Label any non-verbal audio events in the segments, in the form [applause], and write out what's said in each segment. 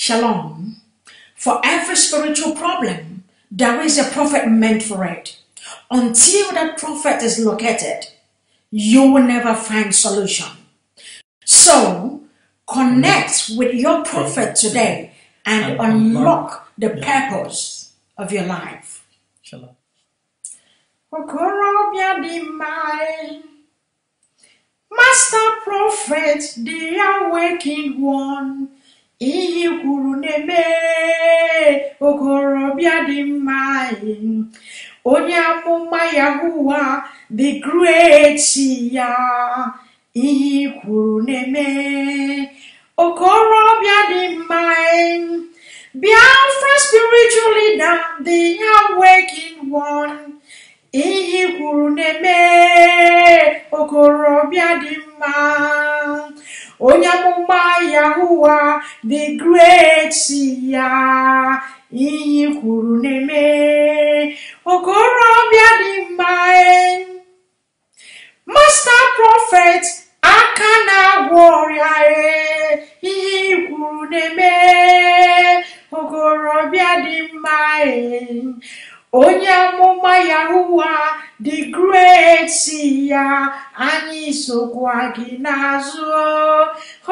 Shalom. For every spiritual problem, there is a prophet meant for it. Until that prophet is located, you will never find solution. So, connect with your prophet today and unlock the purpose of your life. Shalom. Master Prophet, the awakened one, ihe kwuru na-eme okorobịa dị mma onye amụma yahuwa the great ya ihe kwuru na-eme okorobịa dị mma Biafra na dị ya awakened nwọn. ihe kwuru na-eme okorobịa dị mma onye amụma Yahuwa the great ya iyi kwuru na-eme okorobịa dị mma e. masta prọfet aka na-agwọ ọrịa ihe ikwuru na-eme okorobịa dị mma e. onye amụma Yahuwa dị great ya anyị sokwa gị n'azụ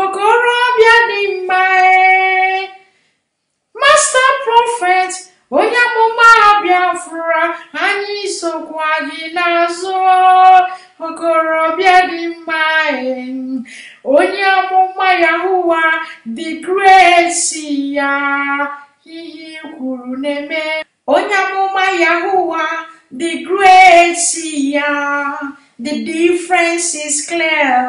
okorobịa dị mma eh? masta prọfet onye amụma Biafra anyị sokwa gị n'azụ okorobịa dị mma eh? onye amụma Yahuwa dị great ya ihe e kwuru na-eme onye amụma Yahuwa the great ya the difference is clear.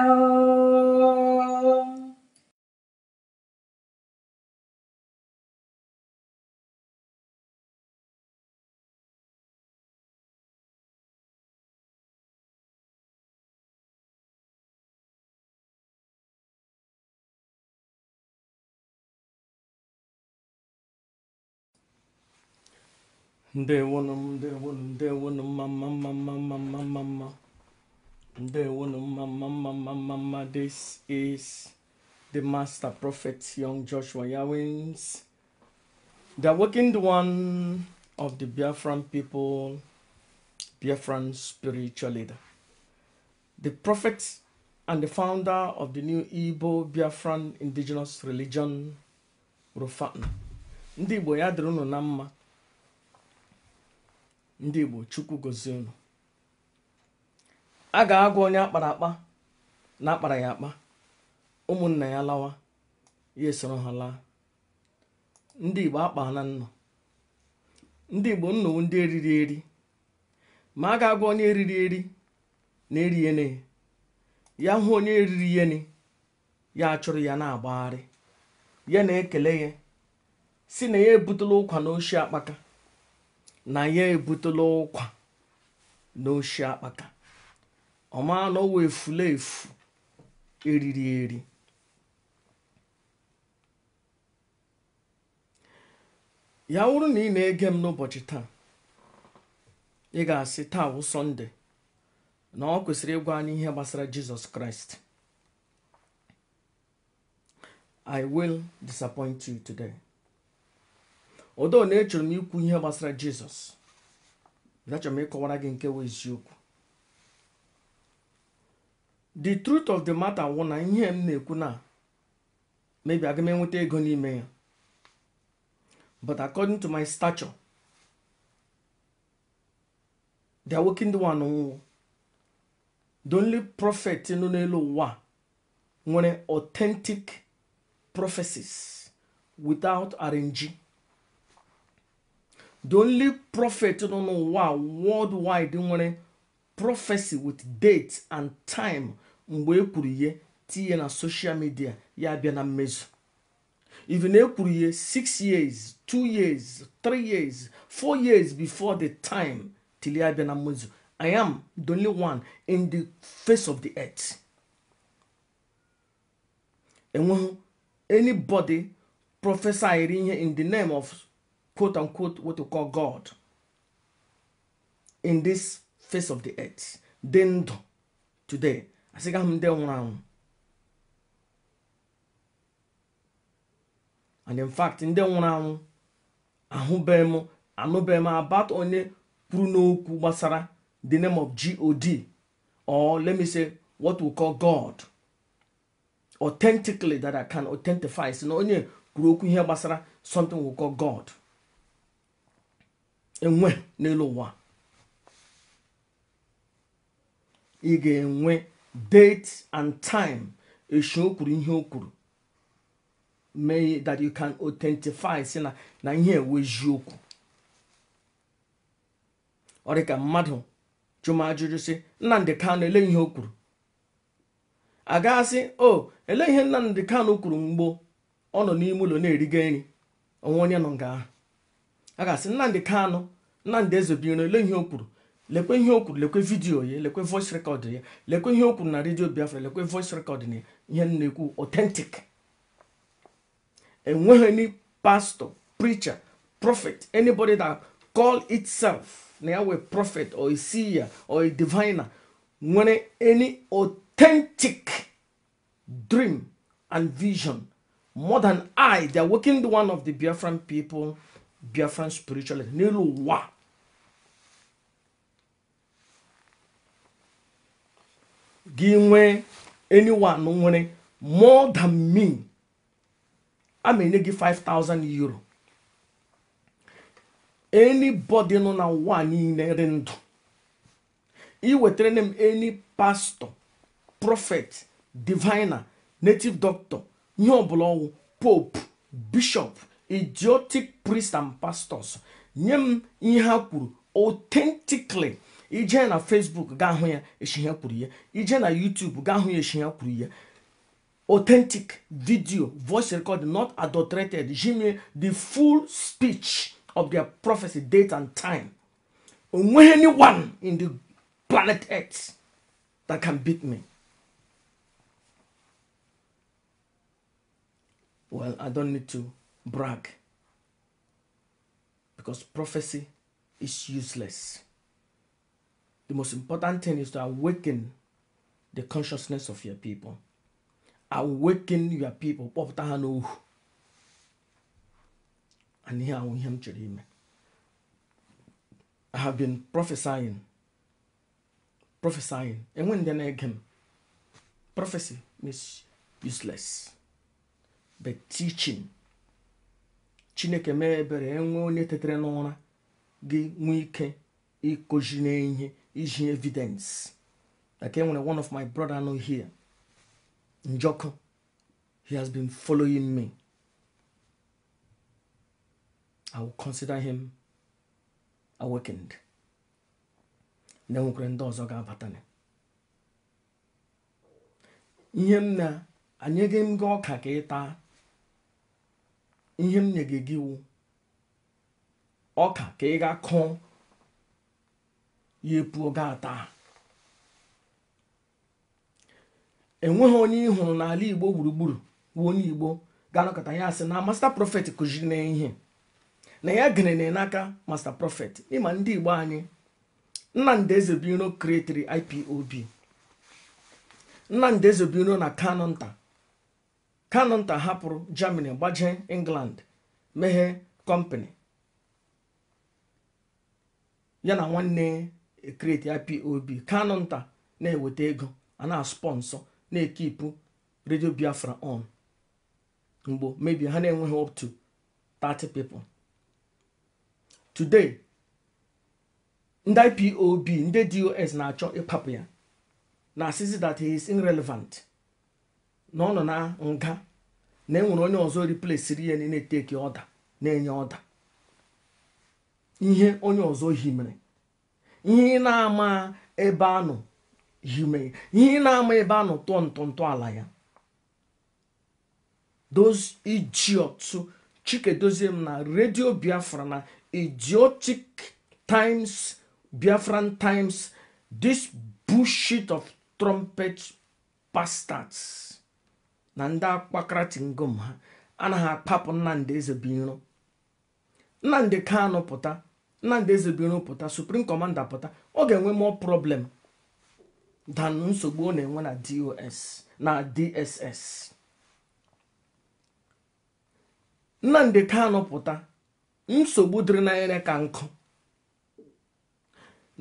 They want them, they want them, they want them, mama, mama, mama, mama. They want them, mama, mama, mama. This is the master prophet, young Joshua Yawins, the awakened one of the Biafran people, Biafran spiritual leader, the prophet and the founder of the new Igbo Biafran indigenous religion, Rufatna. Ndị Igbo ya dịrị ndị igbo chukwu gozie unu a ga-agwa onye akpara akpa na akpara ya akpa ụmụnna ya lawa ya esoro ha laa ndị igbo akpa nnọ ndị igbo nnọọ ndị eriri eri ma a ga-agwa onye eriri eri na eriene ya hụ onye eriri yeni ya achụrụ ya na-agbagharị ya na-ekele ya si na ya ebutela ụkwa na oshi akpaka na ya ebutela ụkwa n'oshi akpata ọma na efula efu eriri eri ya wụrụ na ị na-ege m n'ụbọchị taa ị ga-asị taa wụ sọnde na ọ kwesịrị ịgwa anyị ihe gbasara jizọs kraịst i will disappoint you today. odo na echọrọ m ikwu ihe gbasara jizọs achọrọ m ịkọwara gị nke wee eziokwu the truth of the matter wụ na ihe m na-ekwu na maybe aga m enweta ego n'ime ya but according to my stature the awoke ndị one nwụọ the only prophet nọ n'elu ụwa nwere authentic prophecies without arranging The only prophet no no wa worldwide nwere prophecy with date and time mgbe ekwuru ihe tinye na social media ya abịa na mmezu even ekwuru ihe 6 years 2 years 3 years 4 years before the time till ya abịa na mmezu I am the only one in the face of the earth enweghị anybody prophesy ihe in the name of quote unquote, what we call God in this face of the earth dị ndụ today asị ga m ndị nwụrụ anwụ and in fact ndị nwụrụ anwụ ahụbeghị m anụbeghị m onye kwuru n'okwu gbasara the name of god or let me say what we call god authentically that i can authentify si na onye kwuru okwu ihe gbasara something we call god enwe n'elu ụwa ị ga-enwe date and time esu o kwuru ihe o kwuru mee that you can authentify si na na ihe ewe eziokwu ọ dị ka mmadụ jụm ajụjụ si nnamdị Kanu ele ihe o kwuru a o oh, ele ihe nnamdị Kanu kwuru mgbe ọ nọ n'ime ụlọ na-eriga nri onwe onye nọ nga ahụ a ga-asị Nnamdị Kanụ Nnamdị Ezebiro lee ihe o kwuru lekwe ihe o kwuru lekwe vidiyo ya lekwe voice recorder ya lekwe ihe o kwuru na redio Biafra lekwe voice recorder na ihe na-ekwu authentic enweghị any pastor preacher prophet anybody that call itself na ya wee prophet or a seer or a diviner nwere any authentic dream and vision more than I they are working the one of the Biafran people biafran spiritualism n'elu ụwa gị nwee anyone nwere more than me a ma enye gị 5000 euro anybody nọ na ụwa niile dị ndụ iwetara m any pastor prophet diviner native doctor ihe ọbụla ọnwụ pope bishop idiotic priests and pastors nye m ihe a kwuru authentically ije na facebook gaa hụ ya eshi ha kwuru ya ije na youtube gaa hụ ya eshi ha kwuru ya authentic video voice record not adulterated jimmy the full speech of their prophecy date and time onweghị anyone in the planet earth that can beat me well i don't need to brag because prophecy is useless. The most important thing is to awaken the consciousness of your people. Awaken your people. And here I am I have been prophesying. Prophesying. And when then again, prophecy is useless. But teaching chineke mee ebere enwee onye tetere n'ụra gị nwee ike ịkụzi n'ihe iji evidence like enwere one of my brother no here Njoku he has been following me i will consider him awakened na enwekwara ndị ọzọ ga-abata ihe m na anyị gị m gị ọka ka ịta. ihe m nyege gị wu ọka ka ị ga kụọ ya epuo gaa taa enweghị onye ị hụrụ n'ala igbo gburugburu wu onye igbo ga-anọkọta ya asị na masta prọfet kụziri na ihe na ya gere na n'aka masta prọfet ịma ndị igbo anyị nnamdị ezebiro kretiri ipob nnamdị ezebiro na nta. kanụnta hapụrụ germany gbajee england meghe kọmpani eh, eh, ya na nwanne ya ipob kanụnta na-eweta ego a na-spọnsọ na-ekipụ redio biafra on mgbe mebi ha na-enweghị up to 30 pipo. today ndị ipob ndị dos na-achọ ịpapụ ya na asịzi that he is irrelevant na ọ nọ na nga na enwere onye ọzọ riplesiri ya na na ọda na-enye ọda ihe onye ọzọ himere ihe ị na-ama ebe anọ hime ihe ị na-ama ebe anọ tụọ ala ya those chike dozie m na redio Biafra na idiotic times Biafran times this bullshit of trumpet bastards na ndị akpakaratingom ha anaghị akpapụ nnamdị ezebiro nnamdị kanụ pụta nnamdị ezebiro pụta suprim kọmanda pụta ọ ga-enwe mọ problem dan nsogbu ọ na-enwe na dos na dss nnamdị kanụ pụta nsogbu dịrị n'anya ka nkụ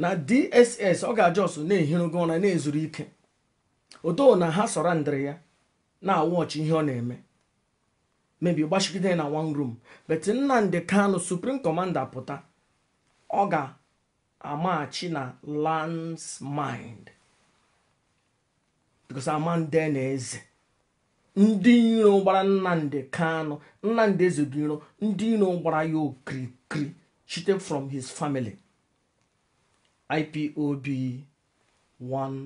na dss ọ ga-ajọsụ na-ehirogo ụra na-ezuru ike odo na ha sọrọ ndịrị ya na-awọchi ihe ọ na-eme mebi gbachigide na one room bet Nnamdi Kano supreme Kọmanda pụta ọ ga-amaghachi na lands mind because amande na eze ndị iro gbara Nnamdi Kano Nnamdi Eze iro ndị iro gbara ya okirikiri chite from his family IPOB one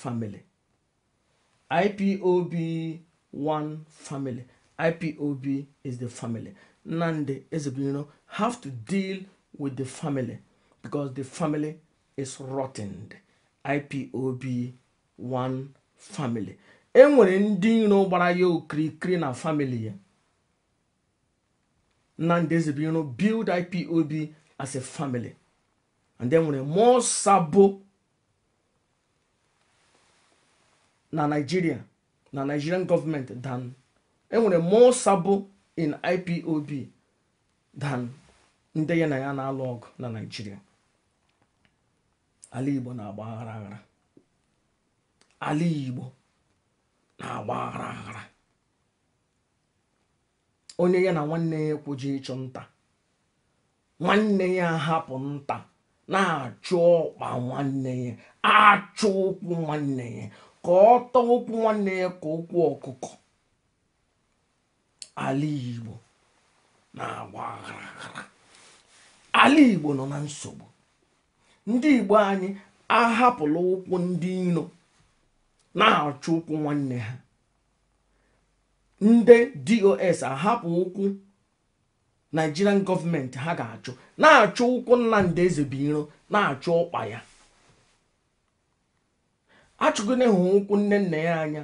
family IPOB one family. IPOB is the family. Nande know have to deal with the family because the family is rotten. IPOB one family. enwere ndị iro gbara ya okirikiri na family ya Nnamdi Ezebiro build IPOB as a family and then nwere more sabo na Nigeria na Nigerian government than enwere more sabụ in IPOB than ndị ya na ya na-alụ ọgụ na Nigeria ala Igbo na-agba aghara aghara ala Igbo na-agba aghara aghara onye ya na nwanne ya ekwuji ịchụ nta nwanne ya hapụ nta na-achụ ọkpa nwanne ya achụ ụkwụ nwanne ya ka ọ tọọ ụkwụ nwanne ya ka ụkwụ ọkụkọ ala igbo na-agba ala igbo nọ na nsogbu ndị igbo anyị ahapụla ụkwụ ndị iro na-achụ ụkwụ nwanne ha ndị dos ahapụ ụkwụ nigerian gọọmenti ha ga-achụ na-achụ ụkwụ nna eze bụ iro na-achụ ụkpa ya achụgide hụ ụkwụ nne nna ya anya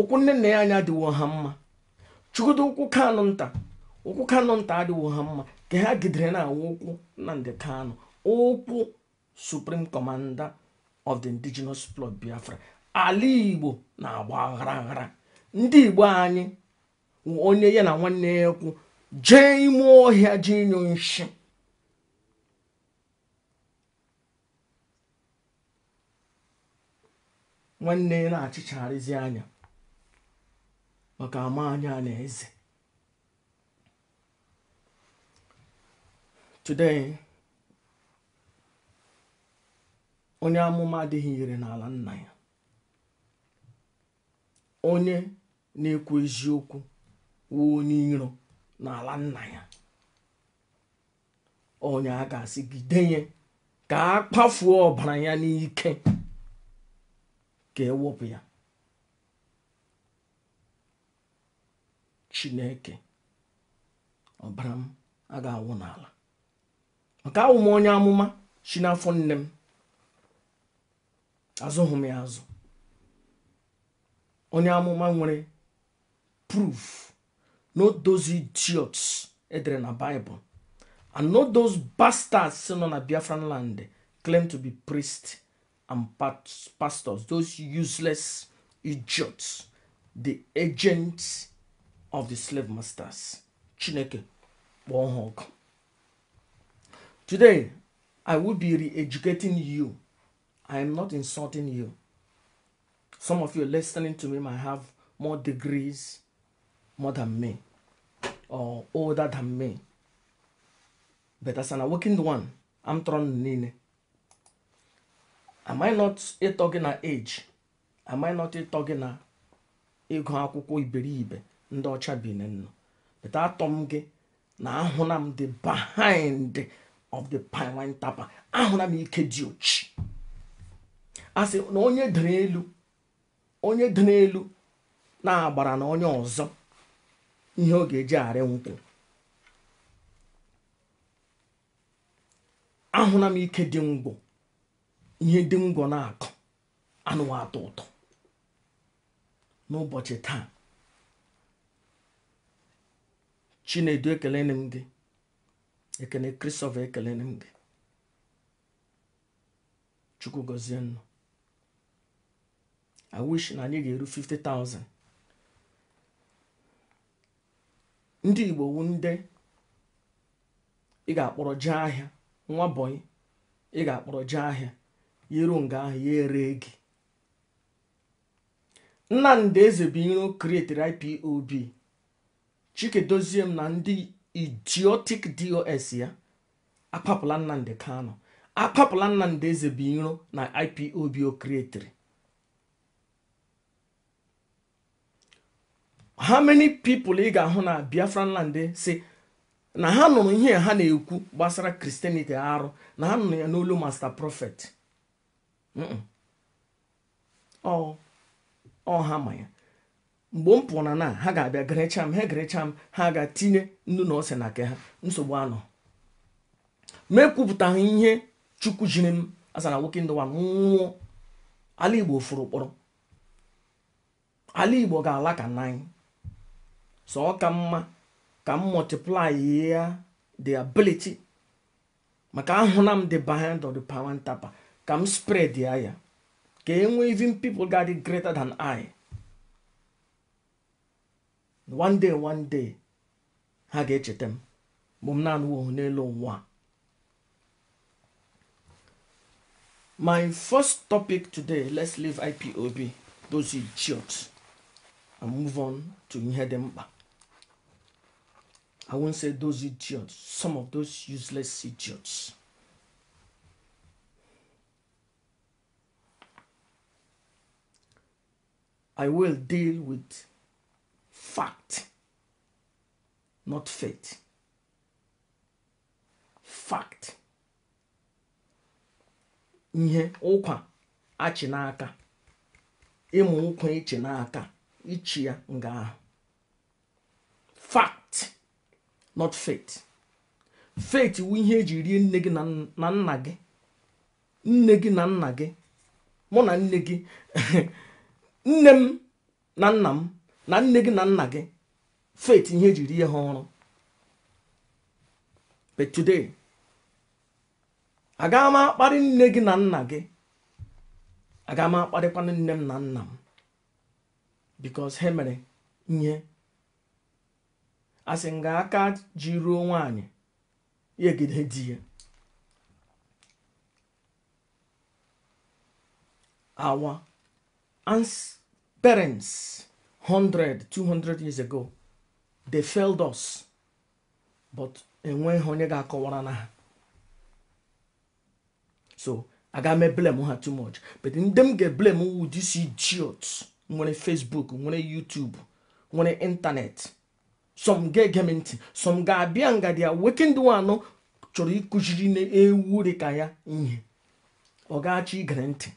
ụkwụ nne nna ya anya adịwo ha mma chukwudo ụkwụ kanụ nta ụkwụ kanụ nta adịwo ha mma ka ha gidere na-awụ ụkwụ Nnamdi Kanu ụkwụ Supreme Commander of the Indigenous plot Biafra ala Igbo na-agba aghara aghara ndị Igbo anyị onye ya na nwanne ya ekwu jee ime ọhịa jee nyụ nshi nwanne ya na-achịchagharịzi anya maka ama anya na eze today onye amụma adịghị ire n'ala nna ya onye na-ekwu eziokwu wụ onye iro n'ala nna ya onye a ga-asị gide ya ka a kpafuo ọbara ya n'ike ka ewepụ ya chineke ọbara m a ga-awụ n'ala maka awụ m onye amụma si n'afọ nne m azụghị m ya azụ onye amụma nwere proof no those idiots edere na Bible and no those bastards nọ na Biafran land claim to be priest and pastors, those useless idiots, the agents of the slave masters. Chineke, one hug. Today, I will be re educating you. I am not insulting you. Some of you listening to me might have more degrees more than me or older than me. But as an awakened one, I'm thrown in. am I not ịtọ gị na age am I not ịtọ gị na ịgụ akwụkwọ iberibe ndị ọcha bi nọ but atọ m gị na ahụna m the behind of the pipeline tapa ahụna m ike dị ochi a sị na onye dere elu onye dị n'elu na-agbara na onye ọzọ ihe ọ ga-eji arị nkwụ ahụna m ike dị ngwụ ihe dị ngwọ na akụ anụwa atọ ụtọ n'ụbọchị taa chinedu ekele na gị ekele kristofa ekelene gị chukwu gozie i wish na anyị ga-eru 50,000 ndị igbo wu ndị ị ga-akpọrọ jee ahịa nwa bọyị ị ga-akpọrọ jee ahịa yero nga ahụ ya ere gị nnamdị ezebuiro create ipob chike dozie m na ndị idiotic dos ya akpapụla nnamdị kano akpapụla nnamdị ezebuiro na ipob o creatiri how many people ị ga-ahụ na biafra land si na ha nụrụ ihe ha na-ekwu gbasara kristianity arụ na ha nụrụ ya n'olu master prophet ọ ha ma mgbe m pụọ na na ha ga-abịa gerecha m ha gerecha m ha ga-tinye nnu na ose na nke ha nsogbu anọ ha ihe chukwu jiri m asa nwoke ndụwa nwụọ ala igbo furu kpọrọ ala igbo ga-ala ka nna sọ so ọ ka mma ka m multiply ya the ability maka ahụna m the behind of the power ka m spread ya ya ka e nwee even people ga greater than I one day one day ha ga-echeta m mgbe m na-anụ n'elu ụwa my first topic today let's leave ipob those idiots and move on to ihe dị mkpa i won't say those idiots some of those useless idiots I will deal with fact, not faith. Fact. Ihe ụkwa achị n'aka. Ịmụ ụkwa ichi n'aka. Ichi ya nga ahụ. Fact, not faith. Faith wụ ihe eji rie nne gị na nna gị. Nne gị na nna gị. Mụ na nne gị. [laughs] nne m na nna m na nne gị na nna gị faith ihe jiri ihe ha ọrụ but today agaghị m akparị nne gị na nna gị agaghị m akparịkwana nne m na nna m because ha mere ihe asị nga aka ji ruo nwaanyị ya egide di ya awa ansị Parents, 100, 200 years ago, they failed us, but enweghị onye ga-akọwara na ha. So, aga m blame ha too much. But ndị m ga-eblame wu this idiot nwere Facebook, nwere YouTube, nwere intanet Some ga-ege ntị, some ga-abịa ngadi ya weekend one chọrọ ịkụziri na ewu dịka ya ihe. Ọ ga-achọ igere ntị.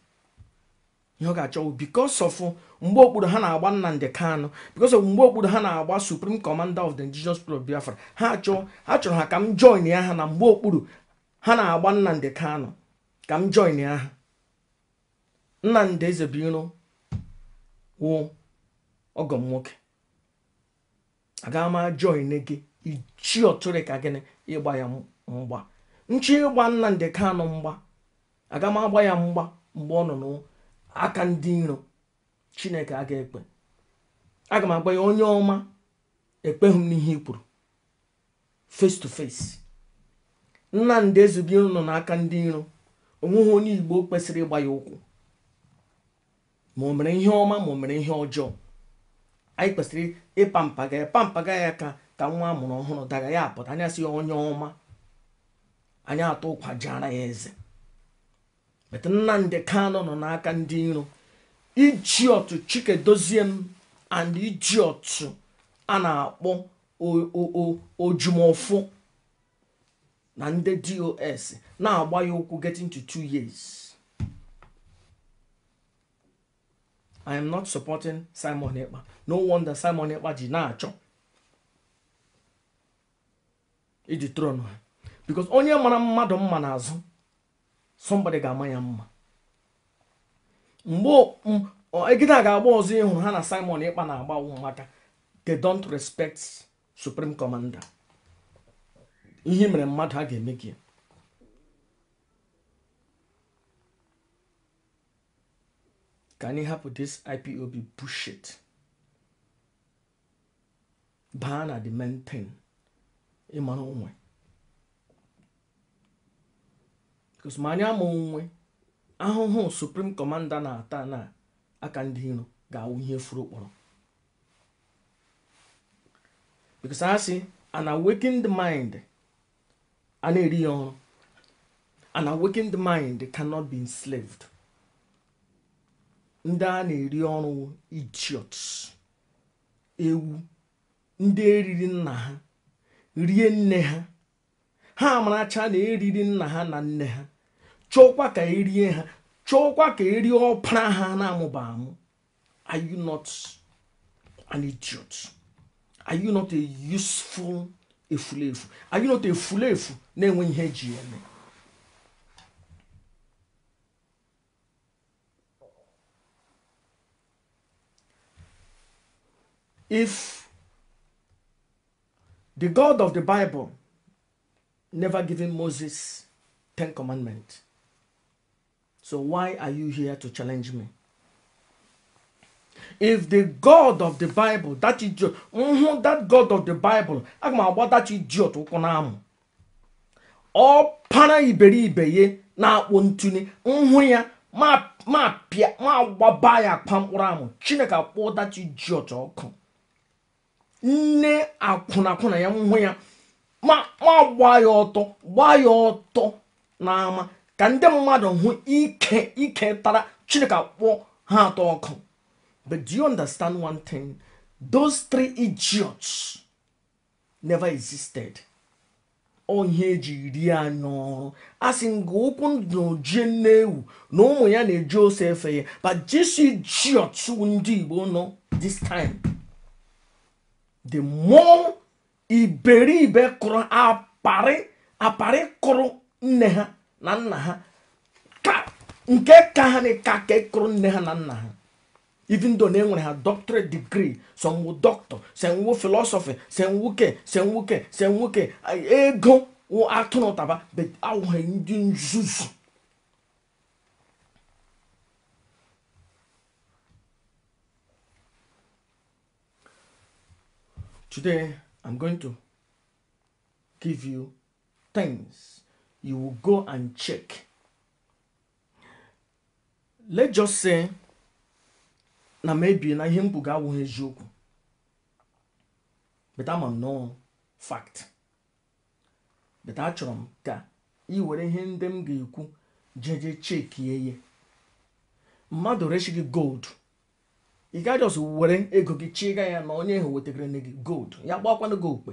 ihe ọ ga-achọ because of mgbe okpuru ha na-agba Nnamdi Kanu because of mgbe okpuru ha na-agba suprim kọmanda of the Indigenous People of Biafra ha achọ ha chọrọ ha ka m join ya ha na mgbe okpuru ha na-agba Nnamdi Kanu ka m join ya ha Nnamdi Ezebiro wụ ọgọm nwoke aga m join gị ichi ọtụrụ ka gịnị ịgba ya mgba nchi ịgba Nnamdi Kanu mgba aga m agba ya mgba mgbe ọ nọ n'ụwa aka ndị nro chineke aga ekpe aga m agwa ya onye ọma ekpeghị m n'ihe i kwuru face to face nnamdị ezube nọ n'aka ndị nro onweghị onye igbo kwesịrị ịgba ya ụkwụ ma o mere ihe ọma ma o mere ihe ọjọọ anyị kwesịrị ịpampaga ya pampaga ya ka ka nwa amụrụ ọhụrụ daga ya apụta anya ya onye ọma anyị atụ ụkwa jeara ya eze bet nnamdị kanụ nọ n'aka ndị iro iji chike chikedozie m and iji otu a na-akpọ ojumofu na ndị dos na-agba ya ụkwụ getting to two years i am not supporting simon ekpa no wonder simon ekpa ji na-achọ iji tron ha because onye mara mmadụ mma n'azụ somebody ga-ama ya mma mgbe a ga-agba ọzọ ịhụrụ ha na simon ịkpa na-agba agwụ they don't respect supreme commander ihe mere mmadụ ha ga-eme gị ka anyị hapụ this ipob bullshit baa na the main thing ịmara onwe anyị ama nwe ahụhụ suprim kọmanda na-ata na aka ndị iro ga-awụ ihe furu kpọrọ because a sị ana mind a na-eri ya ọrụ ana mind ndị a na-eri ọrụ idiots ewu ndị eriri nna ha rie nne ha ha amaracha na eriri nna ha na nne ha chọkwa ka erie ha chọkwa ka erie ọpara ha na-amụba amụ are you not an idiot are you not a useful efulefu are you not a fulefu na-enwe ihe eji eme if the God of the Bible never given Moses Ten Commandments So why are you here to challenge me? If the God of the Bible, that idiot, mm that God of the Bible, aga m agba that idiot ụkwụ n'amụ. Ọ para iberibe ya na-akpụ ntụnye nhụ mhm, ya ma pịa ma agbaba ya akpa mkpụrụ amụ Chineke akpụ that idiot ọkụ. Nne akwụnakwụna ya nhụ mhm, ya ma gbaa ya ọtọ gbaa ya ọtọ na-ama. ka ndị mmadụ hụ ike ike tara chineke akpọ ha atọ ọkụ but do you understand one thing those three idiots never existed onye eji rie anya ọrụ a sị nga ụkwụ n'ojie nne-ewu na ụmụ ya na-eji ose efe ya but jesu idiots ndị igbo nọ this time the more iberibe kụrụ apari kụrụ nne ha na nna ha nke ka ha na ka e kụrụ nne ha na nna ha even though na e nwere ha doctorate degree some wụ doctor some wụ philosophy some nwoke some nwoke some nwoke ego wụ atụrụ taba but awụghị ndị nzuzu Today, I'm going to give you things you will go and check. Let's just say na maybe na ihe m ga awụghị eziokwu but ama m nọ fact but achọrọ m ka ị were ihe ndị m ga-ekwu jeje chekie ya mmadụ rechi gị gold ị gaghị ọzọ were ego gị chịga ya na onye ahụ wetagara gị gold ya gbakwana gị okpe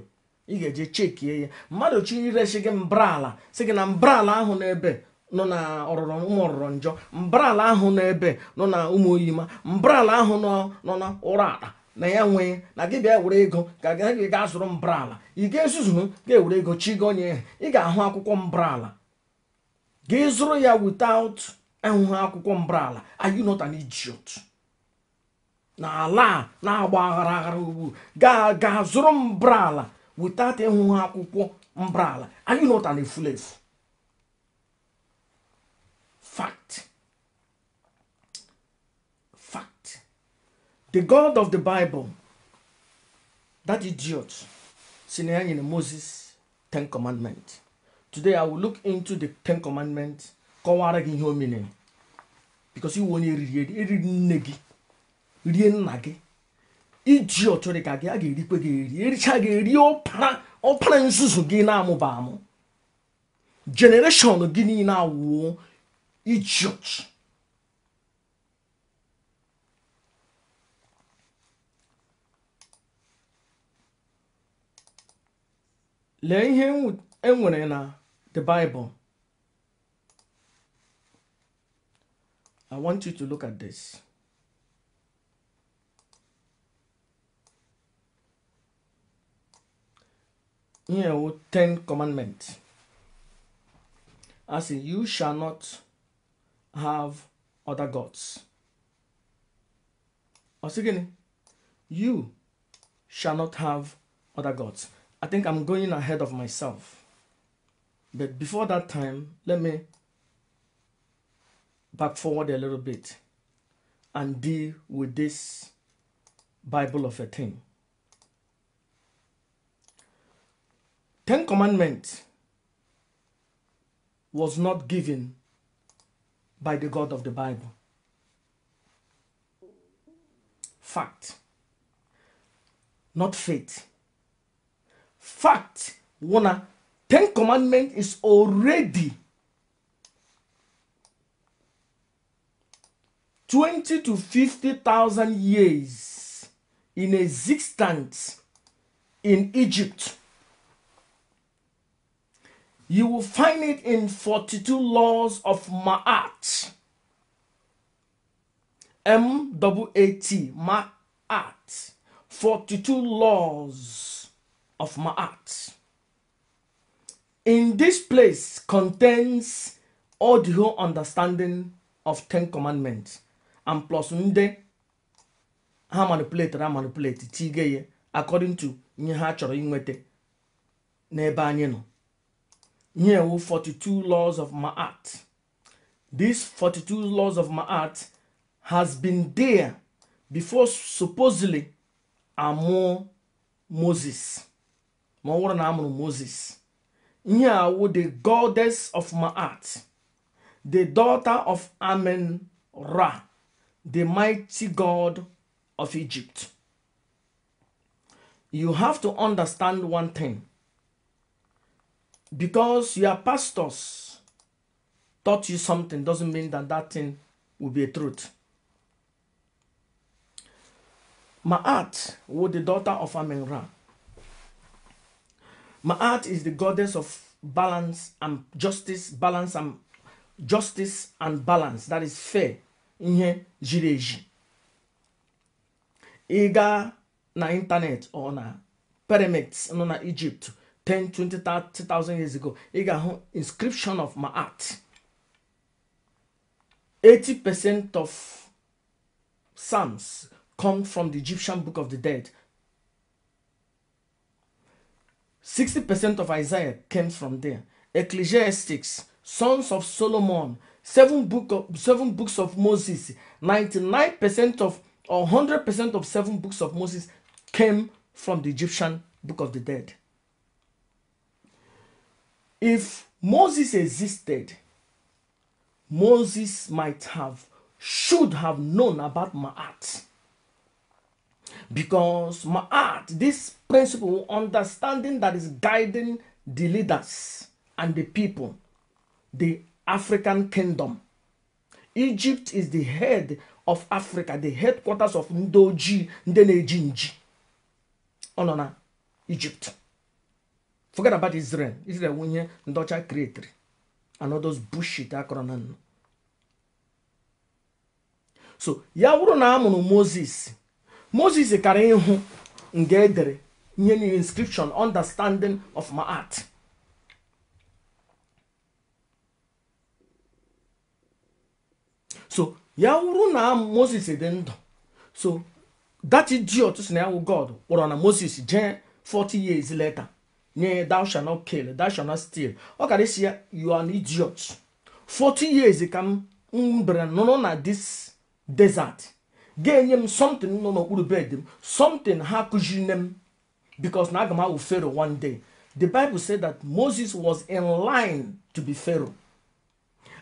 ị ga-eje chekie ya mmadụ chi iresi gị mbrala si gị na mbrala ahụ n'ebe nọ na ọrụrụ ụmụ ọrụrụ njọ mbrala ahụ n'ebe nọ na ụmụ oyima mbrala ahụ nọ na ụra akpa na ya nwee na gị bịa were ego ka gị gaa zụrụ mbrala ị ga-ezuzu ga-ewere ego chi gị onye ị ga-ahụ akwụkwọ mbrala gị zụrụ ya without enwụghị akwụkwọ mbrala are you not an na ala na-agba aghara aghara ugbu gaa gaa zụrụ mbrala without ịhụ akwụkwọ mbra ala are you not an efulefu fact fact the god of the bible that idiot si na ya nyere moses ten commandment today i will look into the ten commandment kọwara gị ihe o mere because iwe onye eriri eri nne gị rie nna gị idiot dị ka gị a ga-erikwe gị eri ericha gị eri ọpara ọpara nzuzu gị na-amụba amụ generation gị niile awụọ idiot lee ihe enwere na the bible i want you to look at this you know, Ten Commandments. As in, you shall not have other gods. Or again, you shall not have other gods. I think I'm going ahead of myself. But before that time, let me back forward a little bit and deal with this Bible of a thing. Ten commandment was not given by the God of the Bible. Fact. Not faith. Fact. One, Ten commandment is already 20 to 50,000 years in existence in Egypt. You will find it in 42 Laws of Ma'at. M W A T, Ma'at. 42 Laws of Ma'at. In this place contains all the whole understanding of Ten Commandments. And plus nde ha manipulated ha manipulated tigeye according to ihe ha chọrọ inweta n'ebe anyị nọ. ihe wụ 42 laws of Ma'at these 42 laws of Ma'at has been there before supposedly amụ Moses ma ọ na amụrụ Moses ihe a the goddess of Ma'at the daughter of Amen Ra the mighty god of Egypt you have to understand one thing because your pastors taught you something doesn't mean that that thing will be a truth. Ma'at was the daughter of Amenra. Ma'at is the goddess of balance and justice, balance and justice and balance. That is fair. In jiri eji. na internet or na pyramids nọ na Egypt 10, 20, years ago, you got inscription of my art. 80% of Psalms come from the Egyptian Book of the Dead. 60% of Isaiah came from there. Ecclesiastics, Sons of Solomon, seven, book of, seven books of Moses, 99% of or 100% of seven books of Moses came from the Egyptian Book of the Dead. If Moses existed, Moses might have, should have known about Ma'at. Because Ma'at, this principle, understanding that is guiding the leaders and the people, the African kingdom. Egypt is the head of Africa, the headquarters of Ndoji Ndenejinji. Onona, Egypt. forget about Israel Israel wụ ndọcha ndị ọcha kreetiri anodos bushit akọrọ na nnụ so ya wuru na amụ mụrụ Moses Moses kara ịhụ nga edere nye niile inscription understanding of my art so ya wụrụ na Moses dị ndụ so that idiot si na ya wụ God kpọrọ na Moses jee 40 years later nye thou shalt not kill thou shalt not steal ọ kara isi ya you are an idiot 40 years ka m mbere nụrụ na this desert ga-enye m something nọ n'okpuru bed m something ha kụziri m because na aga m awụ Pharaoh one day the Bible said that Moses was in line to be Pharaoh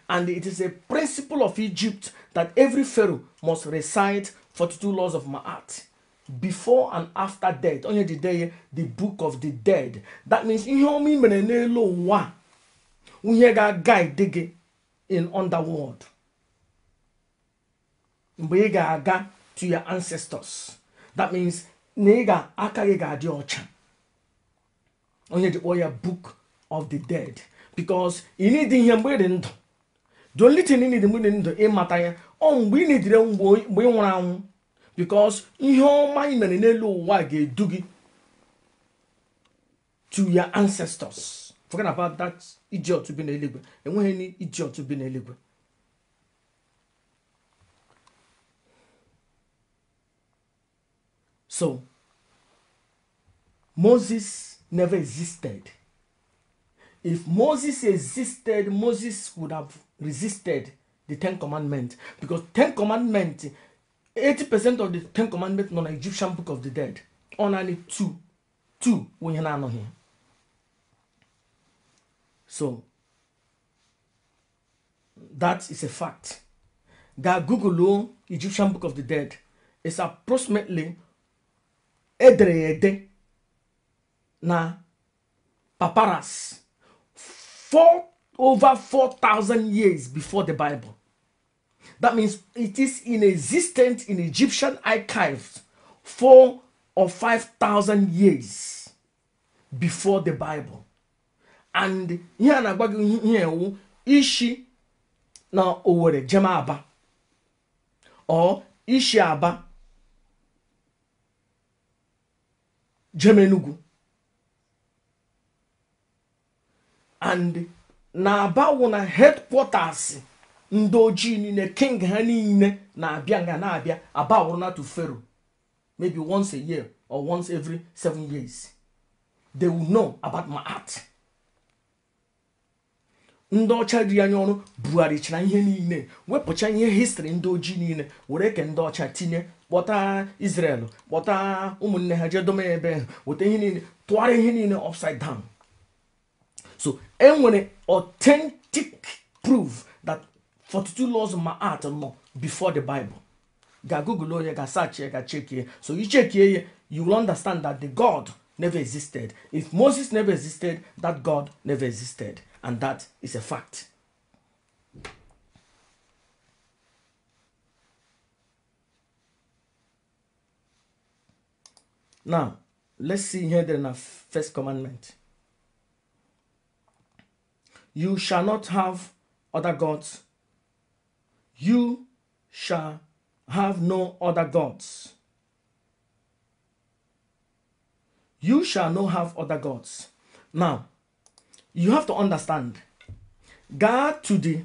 and it is a principle of Egypt that every Pharaoh must recite 42 laws of Ma'at before and after death onye jide ya the book of the dead that means ihe ọma ị mere n'elu ụwa ihe ga-guide gị in underworld mgbe ị ga-aga to your ancestors that means na ị ga-aka gị ga-adị ọcha onye ji kpọọ ya book of the dead because ị need ihe mgbe ị dị ndụ the only thing ị need mgbe ị dị ndụ ịmata ya ọ mgbe ị na mgbe ị nwụrụ anwụ because ihe ọma ị mere n'elu ụwa ga-edu gị to your ancestors forget about that idiot bi n'eluigwe enweghị ni idiot bi n'eluigwe so moses never existed if moses existed moses would have resisted the ten commandments because ten commandments 80% of the ten commandments nọ na egyptian book of the dead ọ naanị two 2 onye na-anọghị so that is a fact that google egyptian book of the dead is approximately edere ya ede na paparas four over 4000 years before the bible That means it is in existence in Egyptian archives four or five thousand years before the Bible. And here na-agwa gị ihe ishi na Owerri jema Aba or ishi Aba jemenugu and na Aba wụ headquarters ndị ojii niile king ha niile na-abịa nga na-abịa aba awụrụna to pharaoh maybe once a year or once every seven years they will know about my art ndị ọcha riri anya ọrụ bugharịchara ihe niile wepụcha ihe histri ndị ojii niile were ke ndị ọcha tinye kpọta Israel kpọta ụmụnne ha jee dome ebe weta ihe niile tụgharịa ihe niile upside down so enwere authentic proof that 42 laws of my art oh no before the Bible. Ga Google here, oh ga search ga check here. So you check here, you will understand that the God never existed. If Moses never existed, that God never existed. And that is a fact. Now, let's see here then our first commandment. You shall not have other gods You shall have no other gods. You shall not have other gods. Now, you have to understand God to the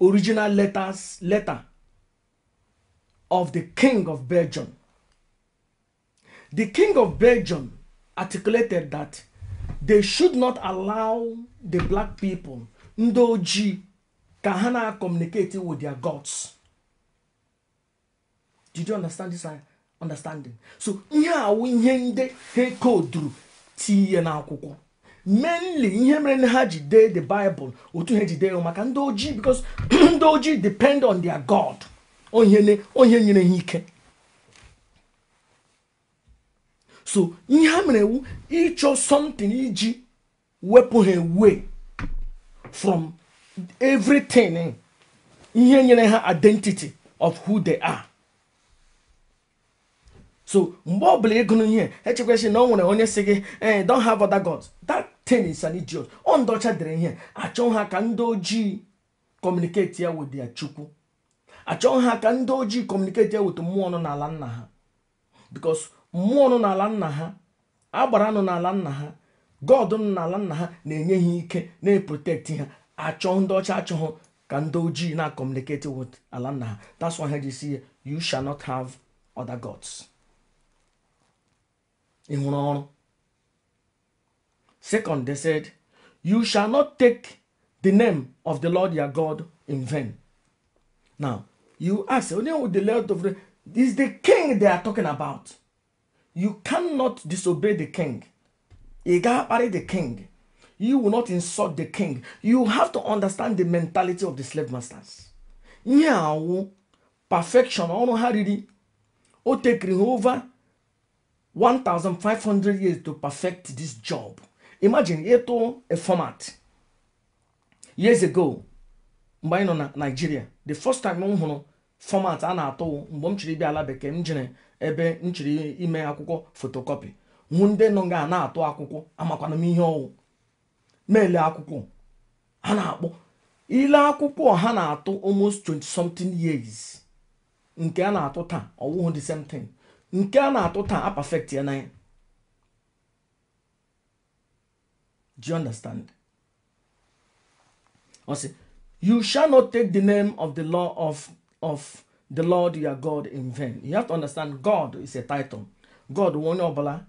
original letters letter of the king of Belgium. The king of Belgium articulated that they should not allow the black people, Ndoji, ka ha na-communicate with their gods did you understand this uh, understanding so ihe awụ ihe ndị ha koduru tinye n'akwụkwọ mainly ihe mere na ha ji dee the bible otu ha ji dee maka ndị ojii because [clears throat] ndị ojii depend on their god onye nyere ha ike so ihe ha mere ewu ịchọ something iji wepụ ha away from everything ihe nyere ha identity of who they are so mgbe ọ bụla ịgụrụ ihe echekwasị na ọ nwere onye si gị eh don't have other gods that thing is an idiot ọ ndọcha dere ihe achọ ha ka ndị ojii kọmuniketi ya with ya chukwu achọ ha ka ndị ojii kọmuniketi ya with mmụọ n'ala nna ha because mmụọ nọ n'ala nna ha agbara nọ n'ala nna ha god nọ n'ala nna ha na-enye ha ike na-eprotekti ha achọ ndị ọcha achọghọ ka ndị ojii na communicating with ala nna ha that's why ha ji see you shall not have other gods ị hụrụ ọrụ second they said you shall not take the name of the lord your god in vain now you ask onye onwe the lord of the is the king they are talking about you cannot disobey the king ị ga-akparị the king you will not insult the king. You have to understand the mentality of the slave masters. ihe awụ perfection, ọrụ ha riri, o tekiri ha over 1,500 years to perfect this job. Imagine, ịtụ a format. Years ago, mgbe anyị nọ na Nigeria, the first time m hụrụ format a na-atụ mgbe m chiri bịa ala bekee m jere ebe m chiri ime akwụkwọ photocopy hụ ndị nọ nga na-atụ akwụkwọ amakwana m ihe ọwụ na akwụkwọ ha na-akpọ ile akwụkwọ ha na-atụ almost 20 something years nke a na-atụ taa ọwụhụ the same thing nke a na-atụ taa a perfect ya na do you understand ọ you shall not take the name of the law of of the lord your god in vain you have to understand god is a title god onye ọbụla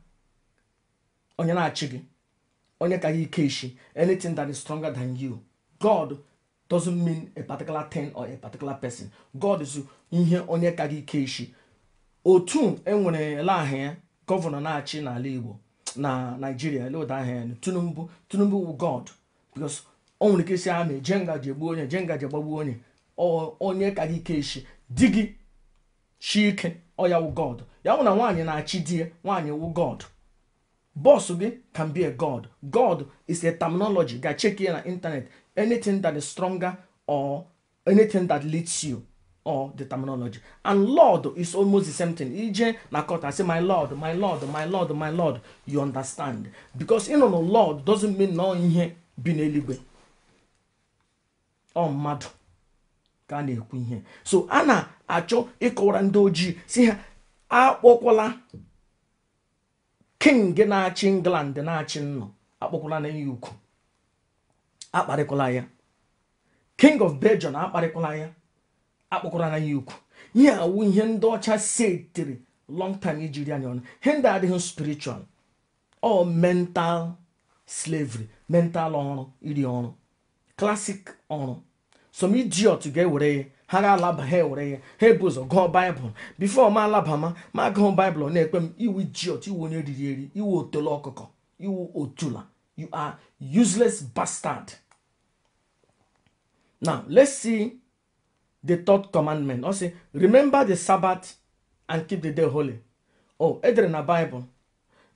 onye na-achị gị onye ka ike ishi anything that is stronger than you god doesn't mean a particular thing or a particular person god is ihe onye ka ike ishi otu enwere ele aha gọvanọ na-achị n'ala igbo na naijiria leoda aha ya tinubu tinubu wu god because o nwere ike isi amị jenga ji egbu onye jenga ji gbagbuo onye onye ka ike ishi di gị chi ike ọ ya wu god ya bụ na nwaanyị na-achị di ya nwaanyị wu god Boss can be a god. God is a terminology. Guy, check here on internet. Anything that is stronger or anything that leads you or the terminology. And Lord is almost the same thing. ije Nakota, I say, My Lord, my Lord, my Lord, my Lord. You understand. Because you know, Lord doesn't mean no ihe bi n'eluigwe Ọ mmadụ ka na-ekwu ihe. So a na-achọ ịkọwara ndị ojii si ha akpọkwala king na-achị england na-achị nnụ na ya ukwu ya king of belgium akparịkwala ya akpọkwala na ya ukwu ihe awụ ihe ndị ọcha setiri long time ijiri anya ọnụ ihe ndị adịghị spiritual ọ mental slavery mental ọrụ iri ọrụ classic ọrụ some ga-ewere ya. ha ga-alaba ha ewere ya ha ebu ụzọ gụọ baịbụl bifo ma alabama ma gụọ baịbụl na-ekpe m iwu ijiot iwu onye riri eri iwu otolo ọkụkọ iwu otula you are useless bastard now let's see the third commandment ọ si remember the sabbath and keep the day holy o oh, edere na baịbụl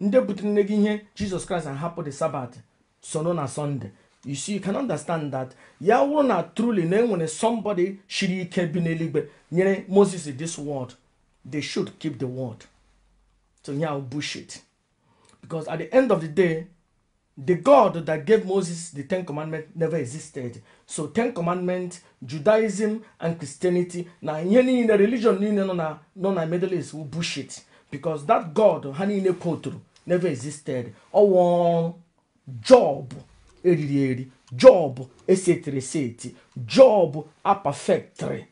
ndị butere nne gị ihe jizọs kraịst ahapụ the sabbath sono na sọnde you see you can understand that yahoo na truly na enwere somebody shiri ike bi n'eluigwe nyere moses this word they should keep the word so ya yeah, bullshit because at the end of the day the god that gave moses the ten commandments never existed so ten commandments judaism and christianity na ihe niile religion niile nọ na nọ na middle east wụ bullshit because that god ha niile kwotụrụ never existed ọwụ job eriri eri job esetereseti job apafektri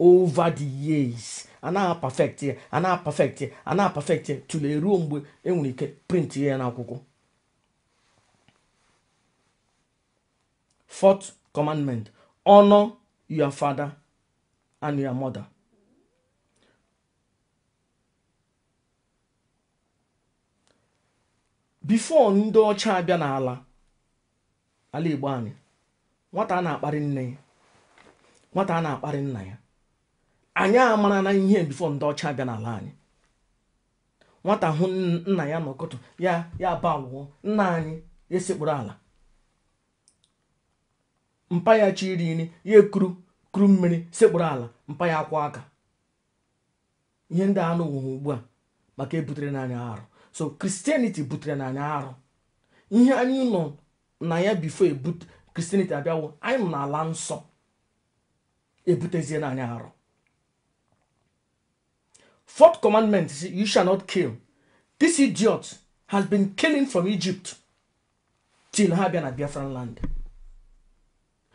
over the years anaghị apafekt ya anaghị apafekt ya anaghị apafekt ya tụlee ruo mgbe enwere ike print ya n'akwụkwọ fourth commandment honor your father and your mother before ndị ọcha abịa n'ala ala igbo anyị nwata a na-akparị nne ya nwata a na-akparị nna ya anyị amara na ihe bifo ndị ọcha bịa n'ala anyị nwata hụ nna ya n'ụkụtụ ya ya ba wụọ nna anyị esekpụrụ ala mpa ya chi iri nri ya ekuru kuru mmiri sekpuru ala mpa ya akwa aka ihe ndị anụ wụhụ ugbu a maka ebutere n'anya arụ so kristianity butere n'anya arụ ihe anyị nọ na ya bifo ebut kristianity abịawo anyị nọ n'ala nsọ ebutezie na anyị arụ fourth commandment is you shall not kill this idiot has been killing from egypt till ha bịa na biafran land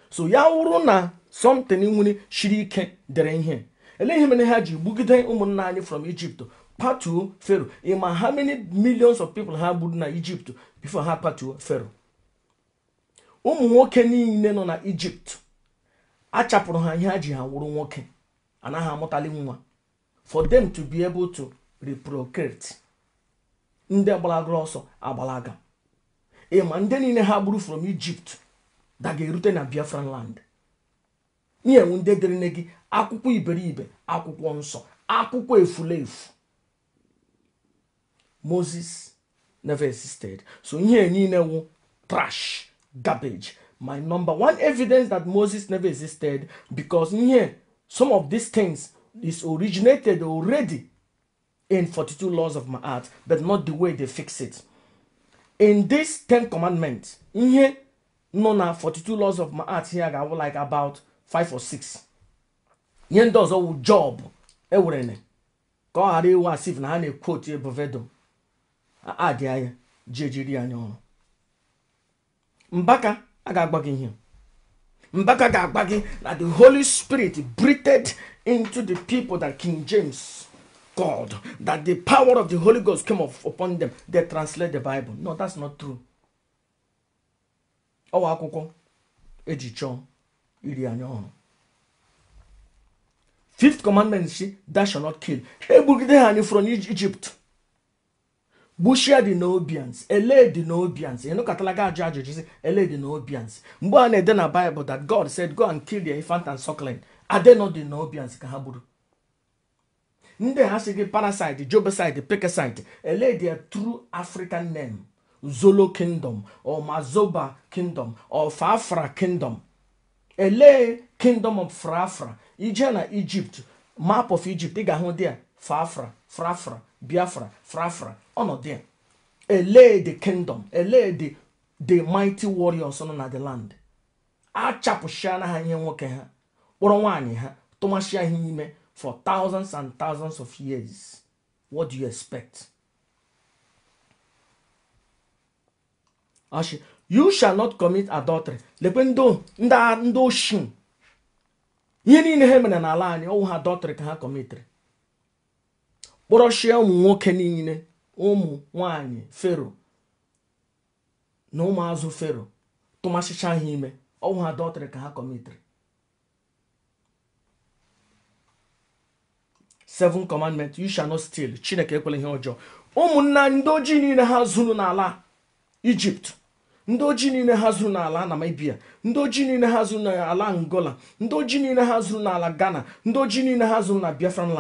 so ya wụrụ na something nwere shiri ike dere ihe ele ihe mere ha ji gbugide ụmụnna anyị from egypt patuo fero ịma ha many millions of people ha gburu na egypt before ha patuo fero ụmụ nwoke niile nọ na ijipt achapụrụ ha ihe a ji ha wụrụ nwoke anaghị amụtali nwa for them to be able to reprocrate ndị gbalagoro ọsọ agbalaga ịma ndị niile ha gburu from ijipt daga-erute na biafran land nyewu ndị dịrịne gị akwụkwọ iberibe akwụkwọ nsọ akwụkwọ efulefu moses never existed so ihe niile wụ trash garbage. My number one evidence that Moses never existed because yeah, some of these things is originated already in 42 laws of my art, but not the way they fix it. In this 10 commandments, yeah, no, no, 42 laws of my art here, I would like about five or six. Yen does all job, ewrene. Ka ọ ghara iwe quote na ha na-ekwotu ebuvedo. Adị anya, jejiri anya Mbaka, I got back in here. Mbaka got back in that the Holy Spirit breathed into the people that King James called, that the power of the Holy Ghost came up upon them. They translate the Bible. No, that's not true. Ọwa akwụkwọ eji chọọ iri anya ọhụrụ. Fifth commandment si, thou shall not kill. Egbugide ha anyị from Egypt. gbuchie dị n'obians ele dị n'obians ịnụkọtala gị ajụ ajụjụ si ele na obians mgbe a na-ede na baịbụl that god said go and kill the infant and suckling adenọ dị obians ka ha gburu ndị ha si gị parasite jobeside pekeside ele dị true african name zolo kingdom or mazoba kingdom or fafra kingdom ele kingdom of frafra ije na egypt map of egypt ị ga-ahụ dia a fafra frafra biafra frafra ọnọdụ ya ele the kingdom ele the the mighty warriors nọ na the land achapụchiana ha ihe nwoke ha kpọrọ nwaanyị ha tụmachia ha ime for thousands and thousands of years what do you expect ashi you shall not commit adultery lekwe ndị oshin ihe niile ha mere n'ala anyị ọnwụ ha adultery ka ha kọmitiri kpọrọchie ụmụ nwoke niile ụmụ nwanyị fero na ụmụazụ fero tụmasịcha ha ime ọnwụ ha dọtịrị ka ha kọmitiri seven commandment you shall not steal chineke ekwela ihe ọjọọ ụmụnna ndị ojii niile ha zuru n'ala ijipt ndị ojii niile ha zuru n'ala namibia ndị ojii niile ha zuru n'ala angola ndị ojii niile ha zuru n'ala ghana ndị ojii niile ha zuru na biafran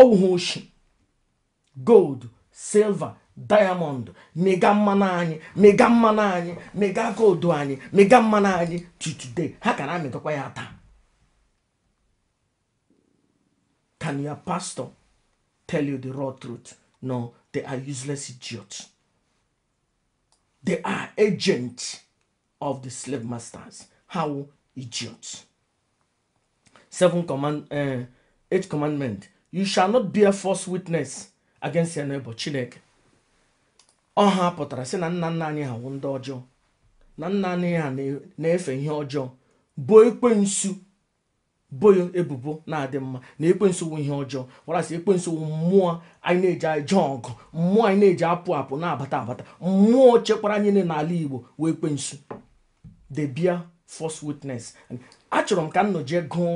ọwụ ha oshi gold Silver, diamond mega mmanụ mega mmanụ mega goldu anyị mega mmanụ today how can I make a taa can your pastor tell you the raw truth no they are useless idiots they are agents of the slave masters how idiots seven command uh, eight commandment you shall not bear false witness against ya n'ebo chineke ọ ha pụtara sị na nna nna anyị ha wụ ndị ọjọọ na nna anyị ha na-efe ihe ọjọọ bụ ekwensu boyo ebubo na-adị mma na ekwensu wụ ihe ọjọọ warasị ekwensu wụ mmụọ anyị na-eji aje ọgụ mmụọ anyị na-eji apụ apụ na-abata abata mmụọ chekwara anyị niile n'ala igbo wee ekwensu the bear false witness achọrọ m ka m nọjee gụọ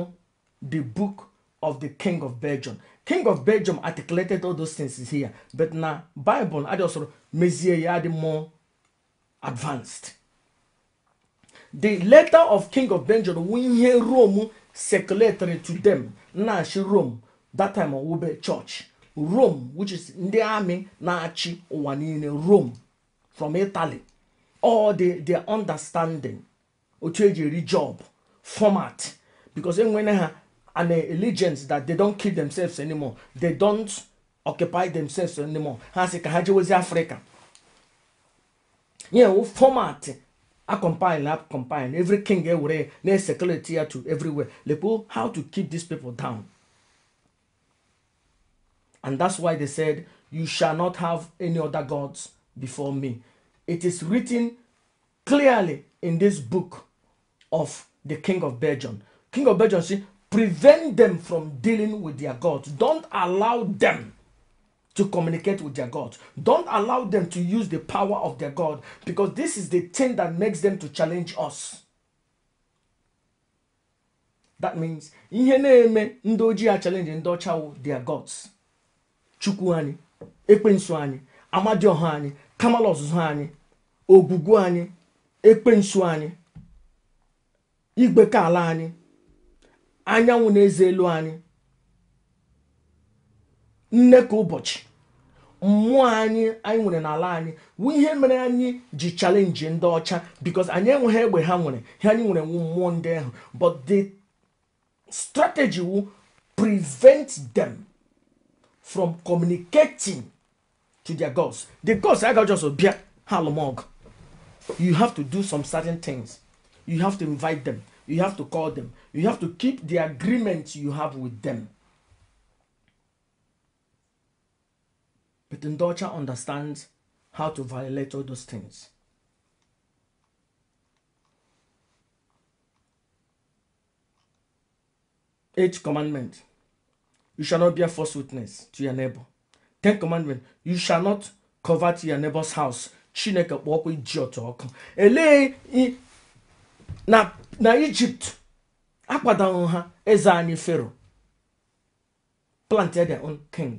the book of the king of belgium king of belgium articulated all those things is here but na bible na adịghị ọsọrọ mezie ya dị more advanced the letter of king of belgium wu ihe rome circulatory to them na-achị rome that time wube church rome which is ndị army na-achị ụwa niile rome from italy all the understand understanding otu eji eri job format because enwene ha an allegiance that they don't kill themselves anymore they don't occupy themselves anymore ha sị ka ha jewezi afrịka yeah, format compile a compile every king ewere na-esekuleti ya to everywhere lepo how to keep these people down and that's why they said you shall not have any other gods before me it is written clearly in this book of the king of belgium king of belgium see Prevent them from dealing with their gods. Don't allow them to communicate with their gods. Don't allow them to use the power of their God because this is the thing that makes them to challenge us. That means ihe na-eme ndị ojii a challenge ndị ọcha their gods. Chukwu anyị, ekwensu anyị, amadioha anyị, kamal anyị, ogwugwu anyị, ekwensu anyị, igwe ala anyị anyanwụ na-eze elu anyị nne ka ụbọchị mmụọ anyị anyị nwere n'ala anyị wụ ihe mere anyị ji chalenji ndị ọcha bikos anyị enweghị egbe ha nwere ihe anyị nwere nwu mmụọ ndị ahụ but the strategy wu prevent them from communicating to their gods the gods aga just bịa ha alụmọgụ you have to do some certain things you have to invite them You have to call them. You have to keep the agreement you have with them. But Ndocha understands how to violate all those things. Eighth commandment. You shall not bear false witness to your neighbor. Tenth commandment. You shall not covet your neighbor's house. na na ijipt akwadanwu ha eze anyị fero plantd king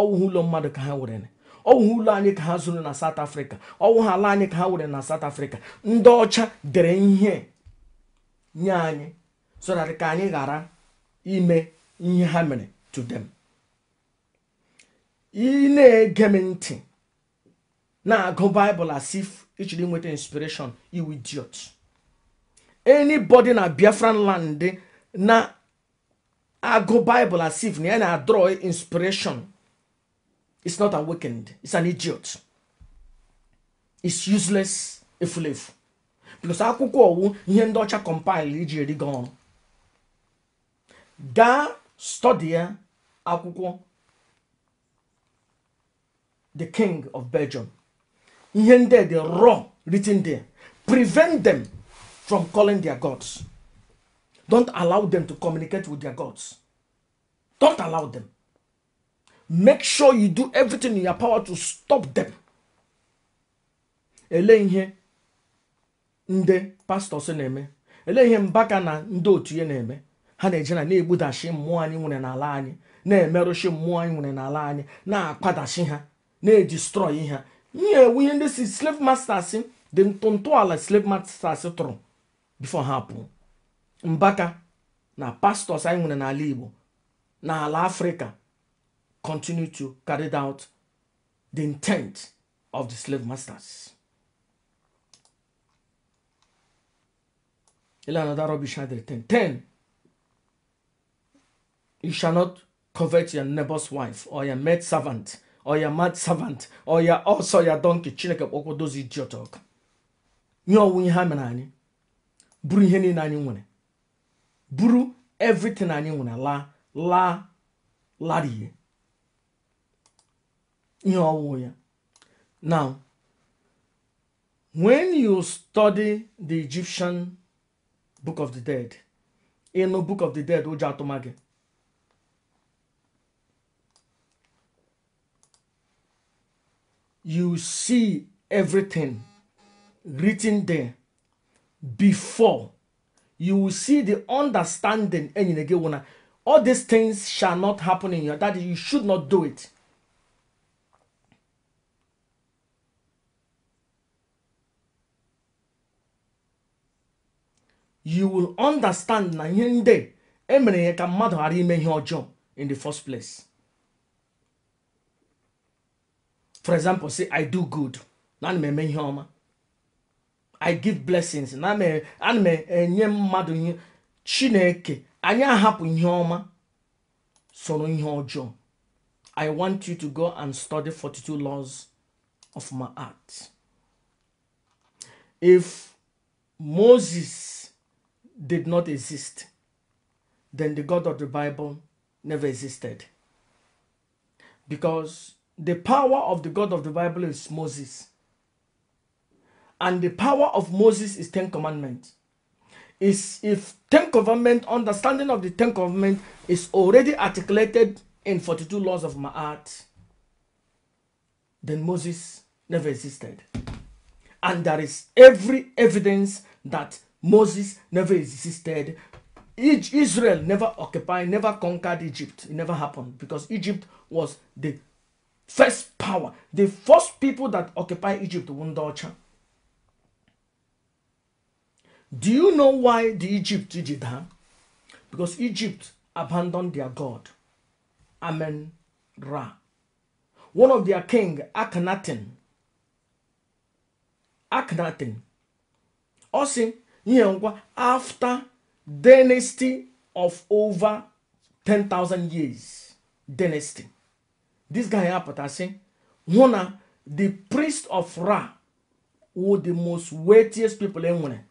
ọwụhụ ụlọ mmadụ ka ha were ọwụhụ ụlọ anyị ka ha zụrụ na south africa ọwụwa ala anyị ka ha were na south africa ndị ọcha dere ihe nye anyị so ka anyị ghara ime ihe ha mere to them ị na-ege m ntị na-agụ baịbụl as if ị nweta inspiration iwu idiot anybody na biafran land na agụ bible as if na ya na-adrọ inspiration is not awakened it's an idiot it's useless efulefu plus akwụkwọ ọwụ ihe ndị ọcha compile iji erigo ọrụ gaa study ya akwụkwọ the king of belgium ihe ndị dị raw written there prevent them from calling their gods. Don't allow them to communicate with their gods. Don't allow them. Make sure you do everything in your power to stop them. Ele ihe ndị pastọs na-eme ele ihe mbaka na ndị otu ihe na na-egbudashi mmụọ anyị nwere n'ala anyị na-emerụshi mmụọ anyị nwere n'ala anyị na-akwadashi ha na-edistrọyi ha nye ewu ihe ndị si slave masters dị ala slave masters tụrụ before ha pụọ mbaka na pastors anyị nwere n'ala igbo na ala afrịka continue to carry out the intent of the slave masters 10. 10. You shall not covet your neighbor's wife or your maid servant or your mad servant or your also your donkey. Chineke kpọkwa dozi idiot ọkụ. Nye ọnwụ ihe ha mere anyị. buru ihe niile anyị nwere buru everything anyị nwere la la larie ihe ọwụwụ ya now when you study the Egyptian book of the dead ịnụ book of the dead ụjọ atụma gị you see everything written there before you will see the understanding and eh, again wanna all these things shall not happen in your that you should not do it you will understand na ihe ndị eh, emere ya ka mmadụ ghara ime ihe ọjọọ in the first place for example say i do good na me m eme ihe ọma i give blessings na me, m enye eh, mmadụ ihe chineke Anya hapu ihe ọma soro i want you to go and study 42 laws of my art if moses did not exist then the god of the bible never existed because the power of the god of the bible is moses and the power of Moses is Ten Commandments. Is if Ten Commandment understanding of the Ten Commandment is already articulated in 42 laws of Ma'at, then Moses never existed. And there is every evidence that Moses never existed. Israel never occupied, never conquered Egypt. It never happened because Egypt was the first power. The first people that occupied Egypt, Wundocha. Do you know why the Egypt did that? Because Egypt abandoned their God, Amen Ra. One of their king, Akhenaten, Akhenaten, ọ sị ihe ngwa after dynasty of over 10,000 years dynasty. This guy apụta si hụ na the priest of Ra were the most weightiest people e nwere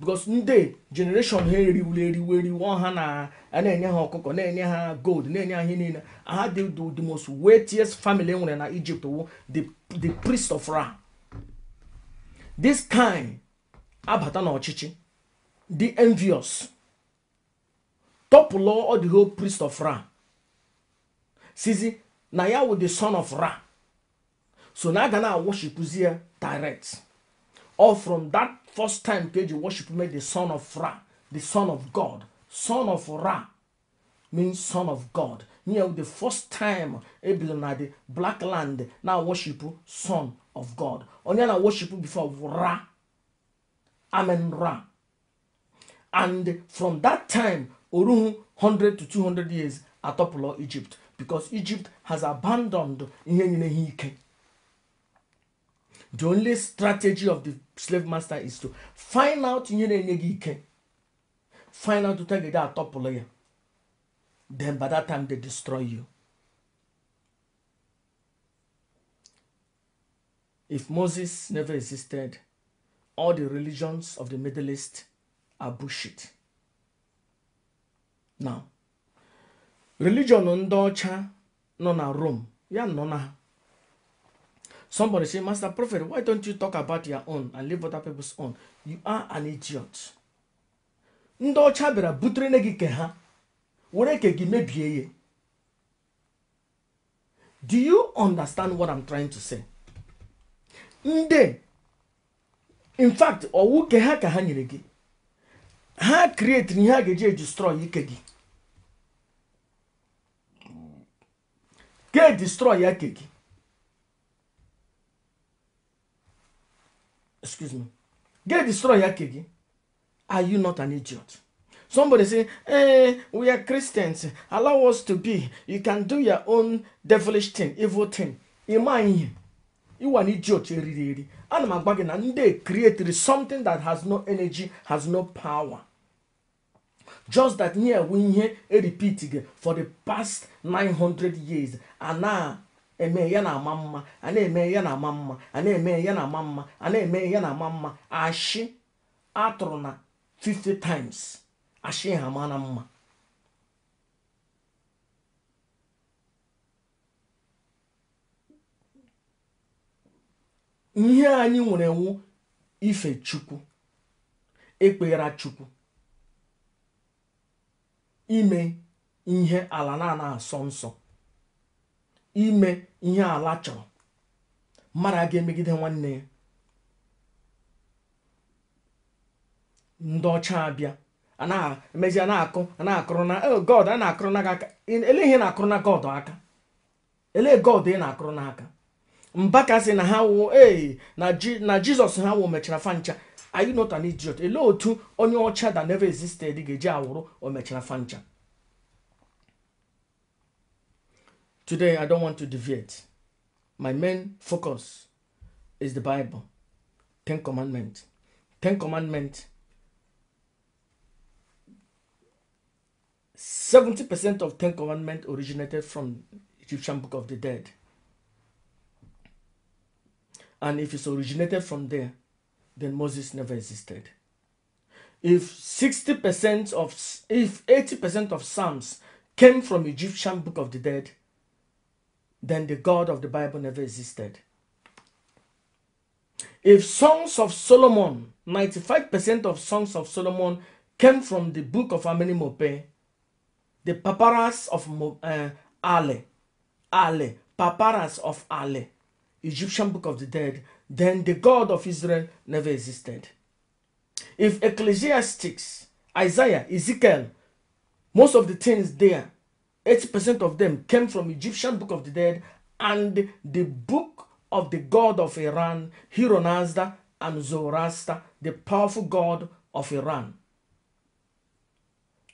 because ndị generation ha eriwuru eriwu ha na enye ha ọkụkọ na-enye ha gold na-enye ha ihe niile ha dị the most wealthiest family e nwere na Egypt wu the priest of Ra this kind abata n'ọchịchị the envious tọpụlọ ọ the priest of Ra sizi na ya wụ the son of Ra so na aga na-awoshipuzi ya direct all from that First time page you worship me, the son of Ra, the son of God, son of Ra means son of God. Near the first time Abel na the black land now worship son of God. Only na worship before Ra, Amen Ra. And from that time, Oruhu 100 to 200 years atọpụlọ Egypt because Egypt has abandoned ihe nyere ha ike. the only strategy of the slave master is to find out na-enye gị ike find out ụta ga atọpụlụ ya then by that time they destroy you if moses never existed all the religions of the middle east are bullshit now religion ndị ọcha nọ na rome ya nọ na Somebody say, Master Prophet, why don't you talk about your own and leave other people's own? You are an idiot. Ndị ọcha bịara butere nne gị ke ha were ke gị mebie ya. Do you understand what I'm trying to say? Ndị in fact owu ke ha ka ha nyere gị ha create na ihe a ga-eji destroy ike gị ga destroy ya ke gị excuse me get destroyed yakegi are you not an idiot somebody say eh we are christians allow us to be you can do your own devilish thing evil thing ịma you ịwa an idiot eriri eri ana m agwa gị na ndị created something that has no energy has no power just that nye ewu ihe eripit gị for the past 900 years and now. eme ya na ama mma a na-eme ya na ama mma a na-eme ya na ama mma a na-eme ya na ama mma ashị atụrụ na 50 times ashị ha mana mma ihe anyị nwere nwu ife chukwu ekpeghara chukwu ime ihe ala na-ana asọ nsọ ime ihe ala chọrọ mmadụ aga ga-emegide nwanne ya ndị ọcha abịa emezi a na-akụ na-akụrụ na oh God a na-akụrụ na aka ele ihe na-akụrụ na God aka ele God ị na-akụrụ n'aka mbaka sị na ha wụ ee na Jizọs ha wụ mechara fancha are you not an idiot? Ele otu onye ọcha that never existed ga-eji awụrụ o mechara fancha Today, I don't want to deviate. My main focus is the Bible, Ten Commandments. Ten Commandments, 70% of Ten Commandments originated from Egyptian Book of the Dead. And if it's originated from there, then Moses never existed. If 60% of, if 80% of Psalms came from Egyptian Book of the Dead, then the God of the Bible never existed. If Songs of Solomon, 95% of Songs of Solomon came from the book of Amini Mope, the papyrus of uh, Ale, Ale, papyrus of Ale, Egyptian book of the dead, then the God of Israel never existed. If Ecclesiastics, Isaiah, Ezekiel, most of the things there 80% of them came from Egyptian Book of the Dead and the book of the god of Iran, Hironazda and Zoroaster, the powerful god of Iran.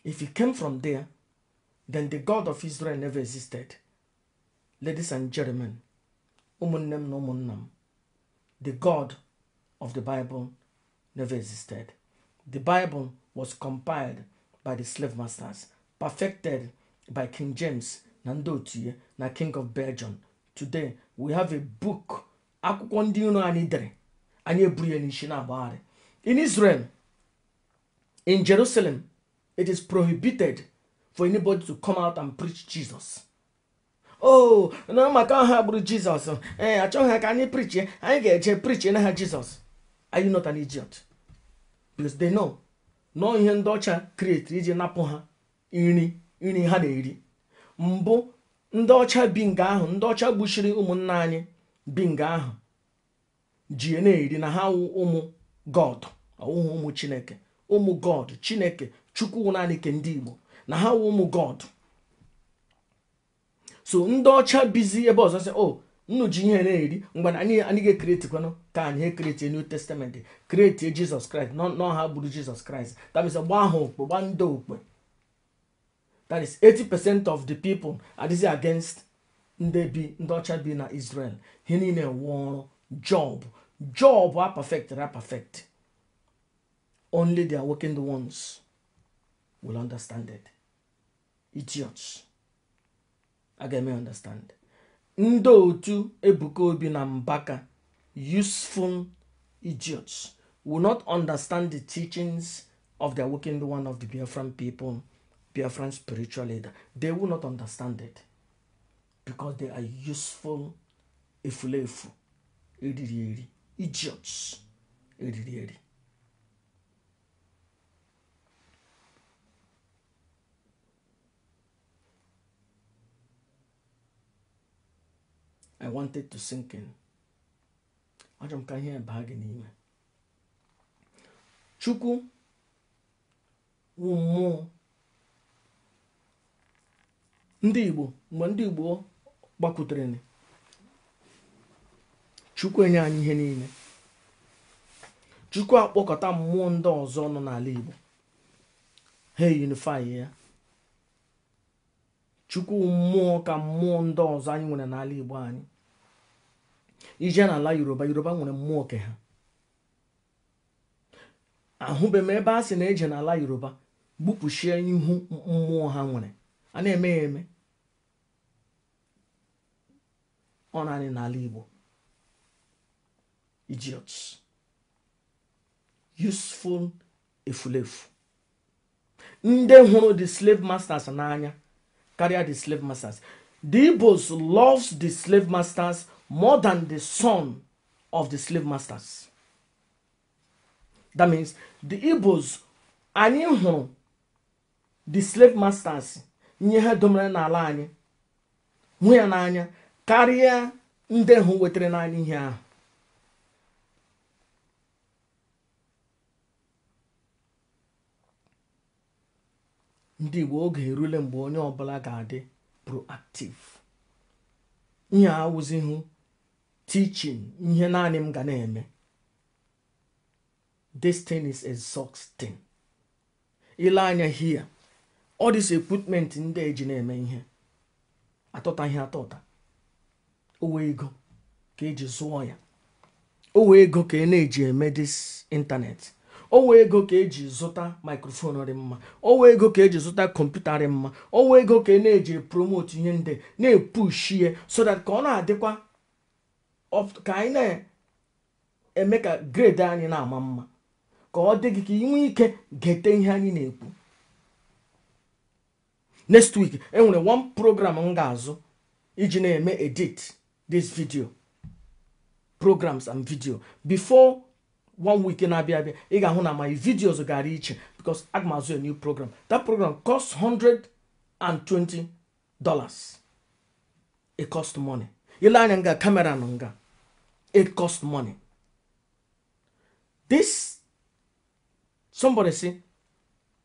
If he came from there, then the God of Israel never existed. Ladies and gentlemen, Umunnem no the God of the Bible never existed. The Bible was compiled by the slave masters, perfected by King James na ndị na King of Belgium today we have a book akwụkwọ ndị iro anyị dere in Israel in Jerusalem it is prohibited for anybody to come out and preach Jesus oh na maka can gburu Jizọs ee eh, achọghị ha ka anyị preach anyị ha are you not an idiot because they know no ihe ndị ọcha create iji napụ ha nri nri ha na-eri mbụ ndị ọcha bi nga ahụ ndị ọcha gbuchiri ụmụnna anyị bi nga ahụ ji e na-eri na ha wụ ụmụ god ọwụhụ ụmụ chineke ụmụ god chineke chukwu naanị ke ndị igbo na ha wụ ụmụ god so ndị ọcha bizi ebe ọzọ sị o oh, nnu ji ihe na-eri mgbe anyị anyị ga-ekeretikwanụ ka anyị ekerete new testament kreetie jizọs kraịst n'ọha gburu jizọs kraịst tabisa gbaa ha okpe gbaa ndị okpe That is 80% of the people adịghị against ndị bi ndị ọcha bi na Israel. Ha niile one Job. Job are perfect, are perfect. Only the awakened ones will understand it. Idiots. Again, I understand. Ndị otu Ebuka Obi na Mbaka, useful idiots, will not understand the teachings of the awakened one of the Biafran people. Biafran spiritual leader, they will not understand it because they are useful efulefu, idiri, idiots, idiri. I wanted to sink in. Achọrọ can hear ihe baa gị n'ime. Chukwu ndị igbo mgbe ndị igbo gbakwutere chukwu enye anyị ihe niile chukwu akpọkọta mmụọ ndị ọzọ nọ n'ala igbo ha eyunifai ya chukwu mmụọ ka mmụọ ndị ọzọ anyị nwere n'ala igbo anyị ije n'ala yoruba yoruba nwere mmụọ ke ha ahụbeghị m ebe a sị na eje n'ala yoruba gbupụchie ihu mmụọ ha nwere a na-eme ya eme ọ naanị n'ala Igbo idiots useful efulefu ndị hụrụ the slave masters n'anya karịa the slave masters the Igbos loves the slave masters more than the son of the slave masters that means the Igbos anyị hụrụ the slave masters ihe ha domere n'ala anyị hụ ya n'anya karịa ndị hụ wetara naanị ihe ahụ ndị igbo oge erule mgbe onye ọbụla ga-adị proactive ihe awụzihụ tichin ihe naanị m ga na-eme this thing is exhausting ile anya here ọ dịs ekwipment ndị eji na-eme ihe atọta ihe atọ ụta ego ka eji zụọ ya owe ego ka e na-eji eme dis ịntanetị owe ego ka eji zụta mikrofon dị mma owe ego ka eji zụta kọmputa dị mma owe ego ka e na-eji promote ihe ndị na-epushi ya so that ka ọ na-adịkwa ka anyị na-eme ka grade anyị na-ama mma ka ọ dị gị ka inwe ike gete ihe anyị na-ekwu next week enwere one program m ga-azụ iji na-eme edit this video programs and video before one week na-abịa abịa ị ga-ahụ na my videos gara iche because aga a new program that program cost 120 dollars it cost money ile anya nga kamera nga it cost money this somebody say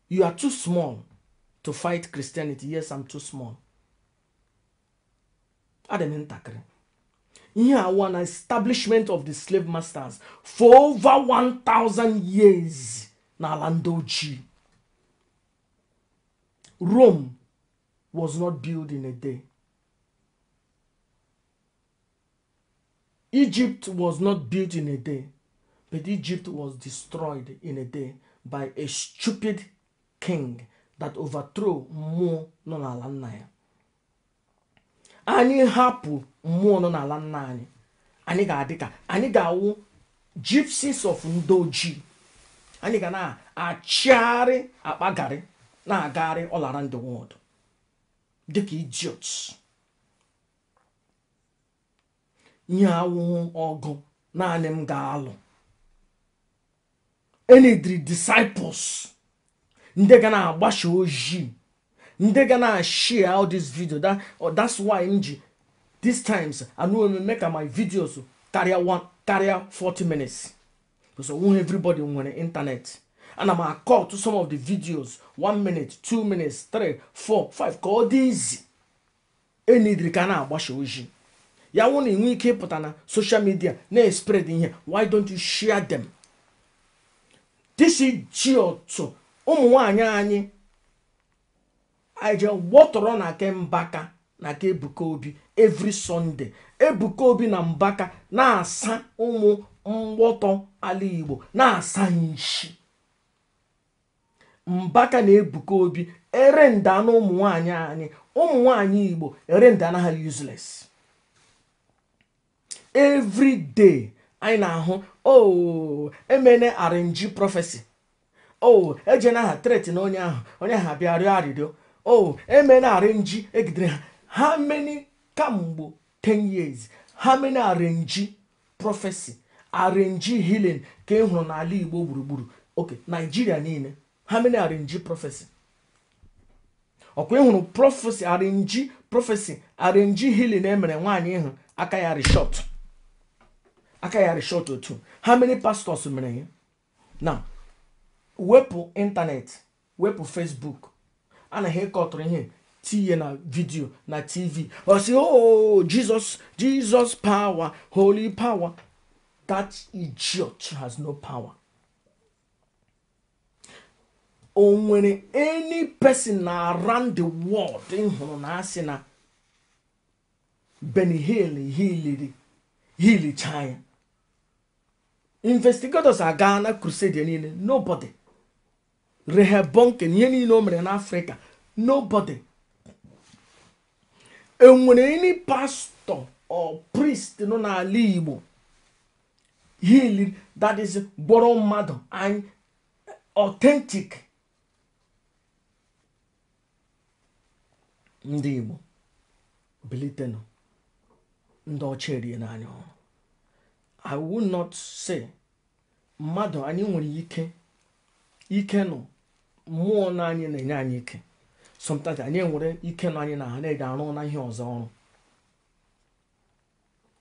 you are too small to fight Christianity. Yes, I'm too small. Adam ntakịrị. Ihe a one establishment of the slave masters for over 1000 years Nalandoji, Rome was not built in a day. Egypt was not built in a day, but Egypt was destroyed in a day by a stupid king that overthrow mmụọ nọ n'ala nna ya anyị hapụ mmụọ nọ n'ala nna anyị anyị ga-adị ka anyị ga-awụ gypsies of ndị ojii anyị ga na-achịgharị akpagharị na-agagharị ọlara ndị the dịka Idiot. nye awụhụ ọgụ naanị m ga-alụ enidri disciples ndị ga na-agbasa ojii ndị ga na-share all this video that, oh, that's why m ji these times anụ eme ka my videos karịa karịa 40 minutes because onwe everybody nwere internet ana m akọ to some of the videos 1 minute 2 minutes 3 4 5 ka ọ dị izi enidiri ka na-agbasa ojii ya wụ na ị ike ịpụta na social media na-espread ihe why don't you share them this idiot ụmụ nwanyị anyị aje wọtọrọ na ke mbaka na ke ebuka obi every sọnde ebuka obi na mbaka na-asa ụmụ mgbọtọ ala igbo na-asa nshi mbaka na ebuka obi ere nda na ụmụ nwanyị anyị ụmụ nwanyị igbo ere nda na ha useless every anyị na-ahụ ooo oh, emene arinji prọfesi o oh, eje na ha tret na onye ahụ onye ahụ abịa rịọ arịrịọ o oh, eme na arenji egidere ha how kamgbo 10 years how many arenji prophecy arenji healing ka ị e hụrụ n'ala igbo gburugburu oke naijiria niile how many arenji prophecy ọkwa ịhụrụ e prophecy arenji prophecy arenji healing emere nwaanyị ịhụ aka ya reshọt aka ya reshọt otu how many pastors mere ya na. wepụ ịntanetị wepụ fesbuk na ịkọtụrụ ihe tinye na vidio na tv osi o oh, jesus jesus power holy power that idiot has no power o nwere any person na around the world ịhụrụ na asị na benihil hill hiliri hilicha investigators aga na crusade niile nobody rehebonken ihe niile o mere n'afrịka nobody enwere any pastor or priest nọ n'ala igbo healing that is gbọrọ mmadụ anyị authentic ndị igbo bilitenụ ndị ọcha erie n'anya ọrụ i will not say mmadụ anyị nwere ike ike nọ mmụọ na anyị na-enye anyị ike sometimes anyị nwere ike na anyị na ha na-eji arụ na ihe ọzọ ọrụ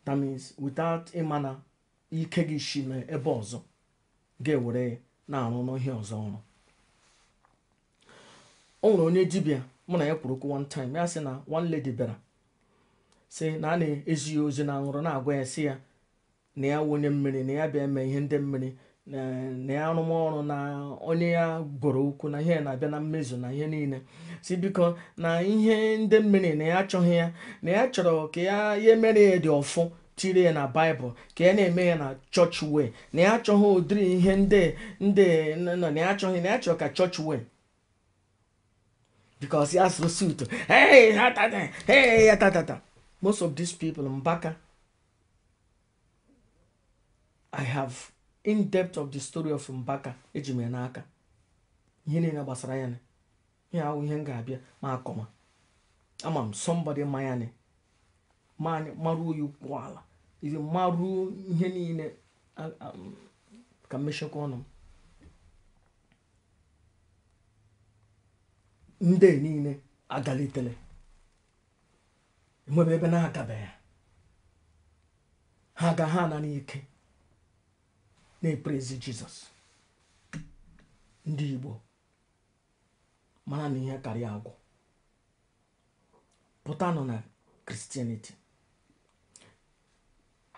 that means without ịma na ike gị shi na ebe ọzọ ga-ewere na-arụ n'ihe ọzọ ọrụ o nwere onye dibịa mụ na ya kwuru okwu one time ya sị na one lady bịara sị na a na-ezi ya ozi na aṅụrụ na-agwa ya si ya na ya wụnye mmiri na ya bịa mee ihe ndị mmiri na ya arụmọrụ na onye ya gworo okwu na ihe na-abịa na mmezu na ihe niile si biko na ihe ndị mmiri na ya achọghị ya na ya chọrọ ka ya ya mere ya dị ọfụ tiri ya na baịbụl ka ya na-eme ya na chọọchị wee na ya achọghị ụdịrị ihe ndị ndị na ya achọghị na ya chọrọ ka chọọchị wee because ya most of these people mbaka i have in depth of the story of Mbaka eji m n'aka ihe niile gbasara ya ihe ahụ ihe m ga-abịa ma akọma ama m somebody ma ya maruo ya ukwu ala izi maruo ihe niile ka mmechekwa ọnụ m ndị niile agalitele enwebe ebe na-agabeghị ha aga ha na n'ike na-eprezi jizọs ndị igbo mara na ihe karịa agwụ pụtanụ na kristianity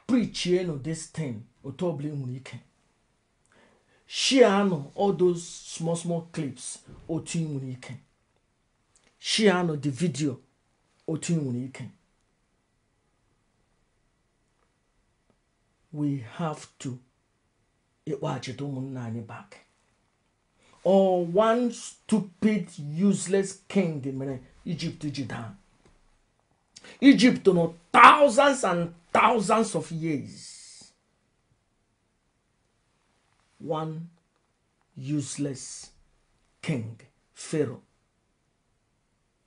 prichie this thing otu ọbụla ị nwere ike shianụ all those small small clips otu ị nwere ike shianụ the video otu ị nwere ike we have to ịkpọghachite ụmụnna anyị back or one stupid useless king mere Egypt ji daa Egypt nọ thousands and thousands of years one useless king Pharaoh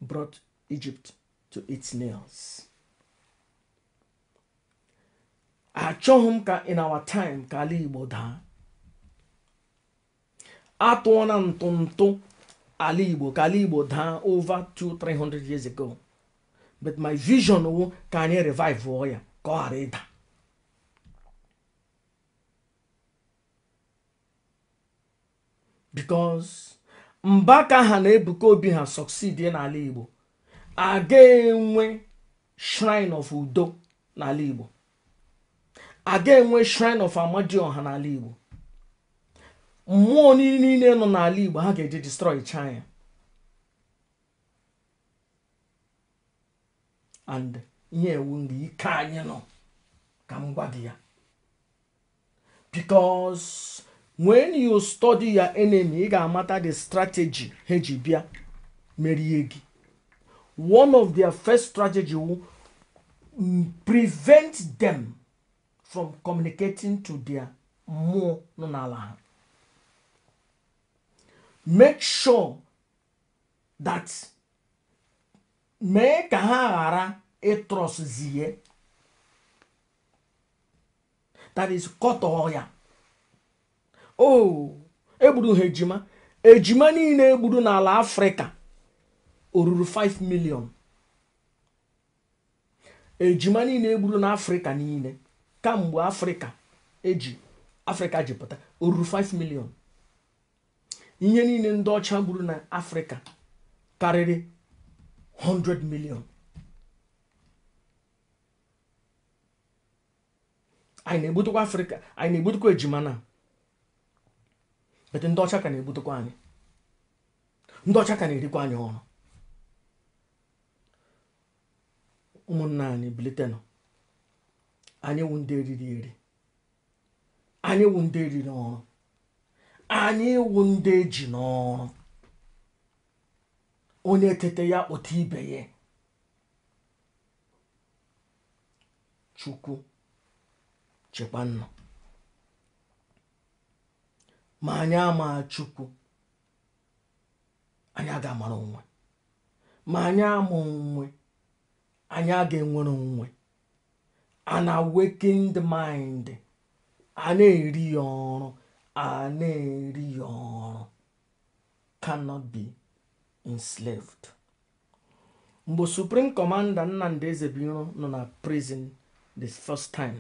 brought Egypt to its nails. Achọghị m ka in our time ka ala Igbo daa atụọ na ntụntụ ala igbo ka ala igbo daa over 200-300 years ago but my vision wụ ka anyị revive ọ ya ka ọ ghara ịda because mba ka ha na-ebuka obi ha succeed n'ala igbo aga enwe shrine of udo n'ala igbo aga enwe shrine of amadioha n'ala igbo mmụọ niile nọ n'ala igbo ha ga-eji destroy china and ihe ewu ndị ike anyị nọ ka m gwa gị ya because when you study your enemy ị ga-amata the strategy ha ji bịa merie gị one of their first strategy mm, prevent them from communicating to their mmụọ nọ n'ala ha make sure that mee ka ha ghara ịtrọszie that is kọtọọ ya o oh, egburu ha ejima ejima niile egburu n'ala afrịka o ruru 5 million ejima niile egburu n'afrịka niile kamgbe afrịka eji afrịka ji pụta o ruru 5 million ihe niile ndị ọcha gburu na afrịka karịrị 100 miliọn anyị na-egbutukwa afrịka anyị na-egbutukwa ejima na ndị ọcha ka na-egbutukwa anyị ndị ọcha ka na-erikwa anyị ọrụ ụmụnna anyị bilitenụ anyị wụ ndị eriri eri anyị wụ ndị eriri ọrụ anyị ịwụ ndị eji n'ọrụ onye tete ya kpụta ibe ya chukwu chekwa nnụ ma anyị ama chukwu anyị aga amara onwe ma anyị ama onwe anyị aga enwere onwe a na-awakened mind a na-eri ya ọrụ a na-eri ya ọrụ cannot be enslaved mgbe supreme commander nnamdi ezebiro nọ na prison the first time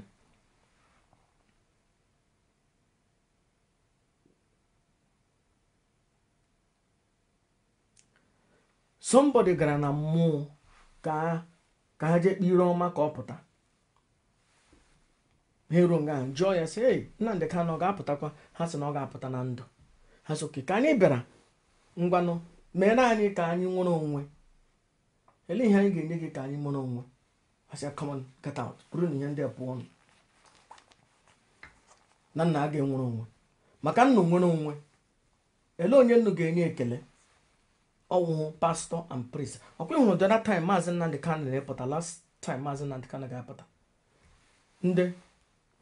somebody gara na mmụọ ka ha jee kpire ọma ka ọ pụta ha eruo nga ahụ jụọ ya sị ei Nnamdị Kanụ ọ ga-apụtakwa ha sị na ọ ga-apụta na ndụ ha so ka anyị bịara ngwanụ mere anyị ka anyị nwere onwe ele ihe anyị ga-enye gị ka anyị nwere onwe asịa na ihe ndị a pụọ na nna a ga-enwere onwe maka nnu nwere onwe ele onye nnu ga-enye ekele ọwụhụ pastọ and priest ọkwa ịhụrụ the other time maazị Nnamdị Kanụ na-epụta last time maazị Nnamdị Kanụ ga-apụta ndị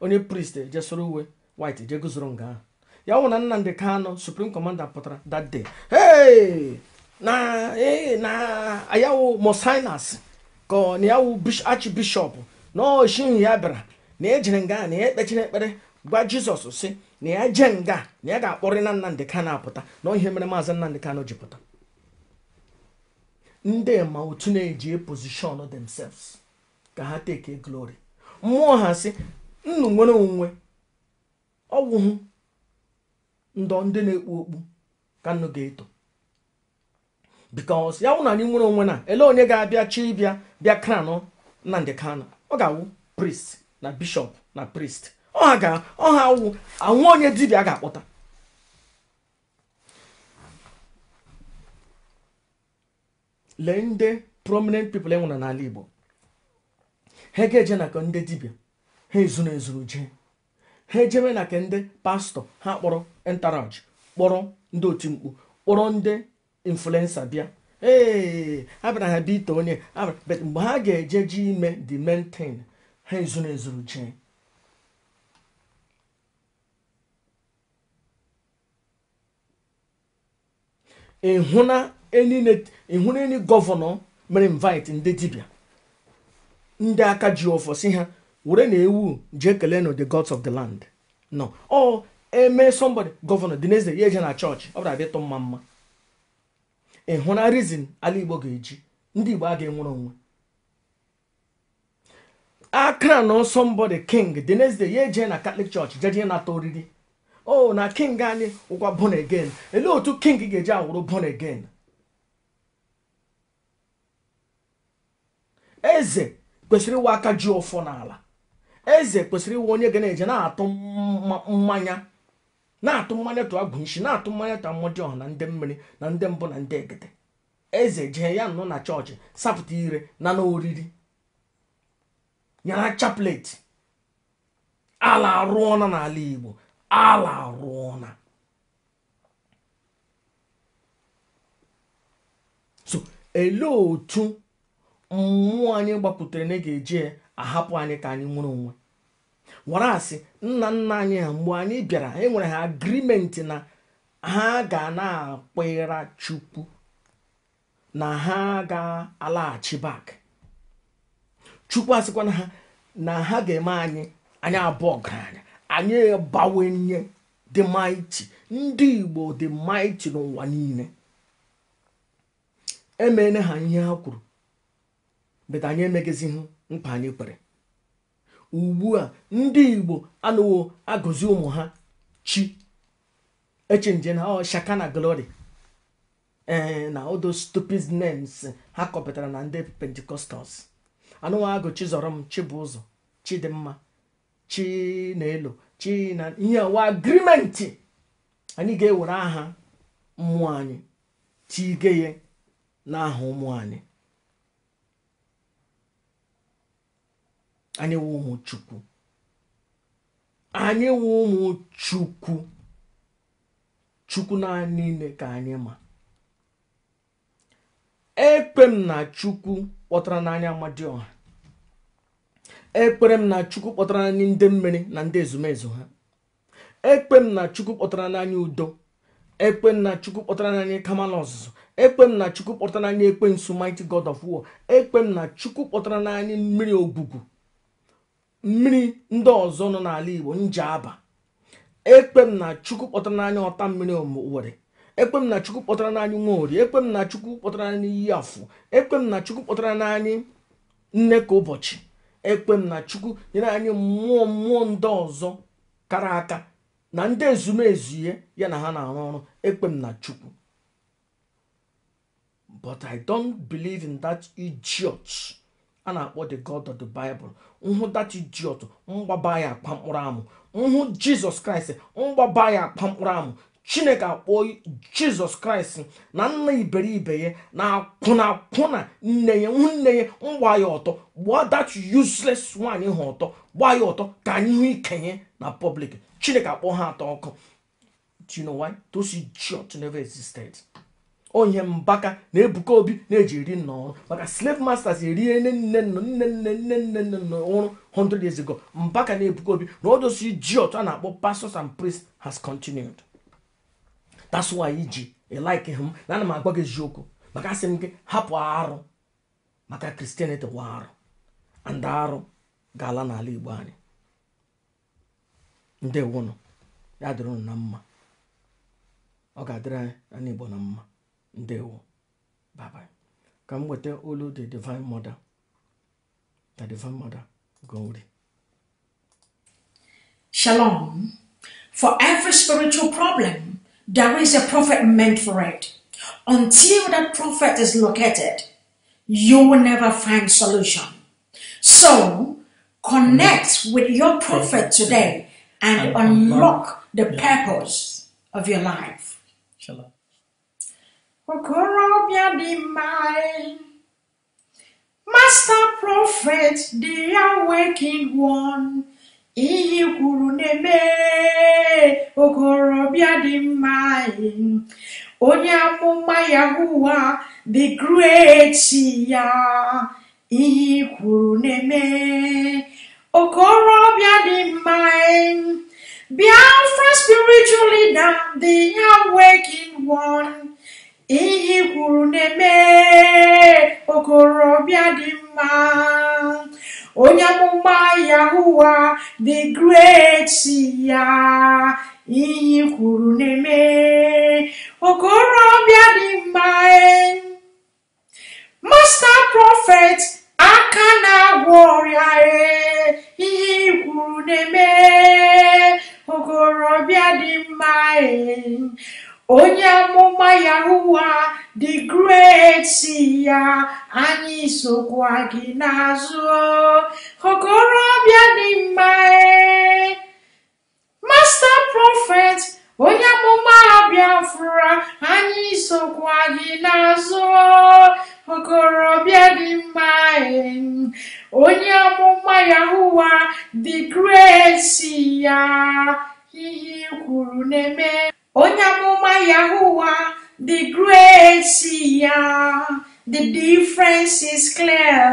onye priest e je uwe white je guzoro nga ahụ ya wụ na nnamdị Kanu supreme commander pụtara that day hey na na ayawu mosinas ka na yawu archbishop na oshihụ ya bịara na ejere nga na ya e ekpechiri ekpere gwa jizọs si na ya jee nga na ya ga-akpọrị na nnamdị kano apụta na ihe mere maazị Nnamdi kano ji pụta ndị ma otu na-eji e pozishọn themselves ka ha teke glory mmụọ ha si nnụ nwere onwe ọwụhụ ndọ ndị na-ekpu okpu ka nnu ga-eto bikos ya wụ anyị nwere onwe na ele onye ga-abịa chi ịbịa bịa kranụ ndị kano ọ ga-awụ priest na bishọp na priest ọha ga awụ anwụ onye dibịa ga-akpọta lee nde prominent e enwere n'ala Igbo ha ga-eje na ndị dibịa ha ezuru ezuru jee ha ejebe na ke ndị pastọ ha kpọrọ entaraj kpọrọ ndị oti mkpu kpọrọ ndị influensa bịa ee abịara ha bite onye but mgbe ha ga-eje ji ime the main thing ha ezuru ezuru jee ịhụna enyi gọvanọ mere invite ndị dibịa ndị aka ji ọfọ si ha were na ewu jee kelee no the gods of the land no o eme somebody governor the next day na church ọ bụrụ abịa mma mma ịhụ na reason ala igbo ga-eji ndị igbo ga-enwere onwe akra nọ somebody king the next day na catholic church jeje nata oriri o na king anyị ụkwa born again elee otu king ga-eji awụrụ born again eze kwesịrị ịwa aka ju ọfọ n'ala eze kwesịrị iwe onye ga na-eje na-atụ mmanya na-atụ mmanya tụ agwụ nshi na-atụ mmanya ta mmụdị ọhụrụ na ndị mmiri na ndị mbụ na ndị egede eze jee ya nọ na chọọchị sapụta ire na n'oriri nyara chaplet ala arụọna n'ala igbo ala arụọna so ele otu mmụọ anyị gbapụtara na ga-eje ahapụ anyị ka anyị nwere onwe nwara asị nna nna anyị ha mgbe anyị bịara e nwere ha agrimenti na ha ga na-akpịra chukwu na ha ga-alaghachi bak chukwu asịkwana ha na ha ga-eme anyị anyị abụọ ọgaranya anyị bawanye dị maịtị ndị igbo dị maịtị n'ụwa niile emeela ha ihe ha kwuru bet anyị emeghezihụ mkpa anyị kwere ugbu a ndị igbo anụwo agụzi ụmụ ha chi echenje na shaka na glory ee na odo stupid names ha kọpụtara na ndị pentikostals anụwa agụ chizọrọ m chibụzọ chidimma chinelo china ihe wa agrimenti anyị ga-ewere aha mmụọ anyị tige ya n'aha ụmụ anyị anyị wụ ụmụ chukwu anyị wụ ụmụ chukwu chukwu naanị ime ka anyị ma ekpe m na chukwu kpọtara n'anya ọha ekpere m na chukwu kpọtara n'anya ndị mmiri na ndị ezumezu ha ekpe m na chukwu kpọtara n'anya udo ekpe m na chukwu kpọtara n'anya kamal ọzụzụ ekpe m na chukwu kpọtara n'anya ekpe nsu mighty god of war ekpe m na chukwu kpọtara n'anya mmiri ogwugwu mmiri ndị ọzọ nọ n'ala igbo nje aba m na chukwu kpọtara n'anya ọta mmiri owere ekpe m na chukwu kpọtara n'anyị nwa ori ekpe m na chukwu kpọtara n'anyị iyi afụ ekpe m na chukwu kpọtara n'anya nne ka ụbọchị ekpe m na chukwu nyere anyị mmụọ mmụọ ndị ọzọ kara aka na ndị ezumezu ihe ya na ha na-arụ ọrụ ekpe m na chukwu but i don't believe in that idiot a na-akpọ the god of the bible nhụ dachi jiọt mgbaba ya akpa mkpụrụ amụ nhụ jizọs kraịst mgbaba ya akpa mkpụrụ amụ chineke akpọọ jizọs kraịst na nna iberibe ya na-akwụna akwụna nne ya nne ya mgba ya ọtọ Gbuo dat useless nwaanyị ha ọtọ gbaa ya ọtọ ka anyị hụ ikenye na public chineke akpọọ ha atọ ọkụ do you know jiọt neve existed onye mbaka na-ebuka obi na-eji eri nna ọrụ maka slave masters erie nne nne nne nne nne nne nne nne ọrụ 100 years ago mbaka na-ebuka obi na ọdosi ji otu a na-akpọ pastors and priests has continued that's why iji like him na ana m agwa gị eziokwu maka asị m gị hapụ arụ maka kristianity wa arụ and arụ ga-ala n'ala igbo anyị ya dịrị mma ọ ga-adịrị anyị na igbo na mma Ndewo. Bye Ka m weta olu the Divine Mother. The Divine Mother. Glory. Shalom. For every spiritual problem, there is a prophet meant for it. Until that prophet is located, you will never find solution. So connect with your prophet today and unlock the purpose of your life. Shalom. okorobịa dị mma master prophet dị ya waking one iyi kwuru na-eme okorobịa dị mma onye amụma yahuwa the great ya iyi kwuru na-eme okorobịa dị mma Biafra spiritual leader the ya waking one Iyi kwuru na-eme okorobịa dị mma onye amụma Yahuwa the great ya iyi kwuru na-eme okorobịa dị mma masta prọfet aka na-agwọ ọrịa ihe kwuru na-eme okorobịa dị mma onye amụma Yahuwa the great si ya anyị sokwa gị n'azụ okorobịa dị mma eh? masta prọfet onye amụma Biafra anyị sokwa gị n'azụ okorobịa dị mma eh? onye amụma Yahuwa the great si ya ihe e kwuru na-eme onye amụma Yahuwa the grace ya the difference is clear.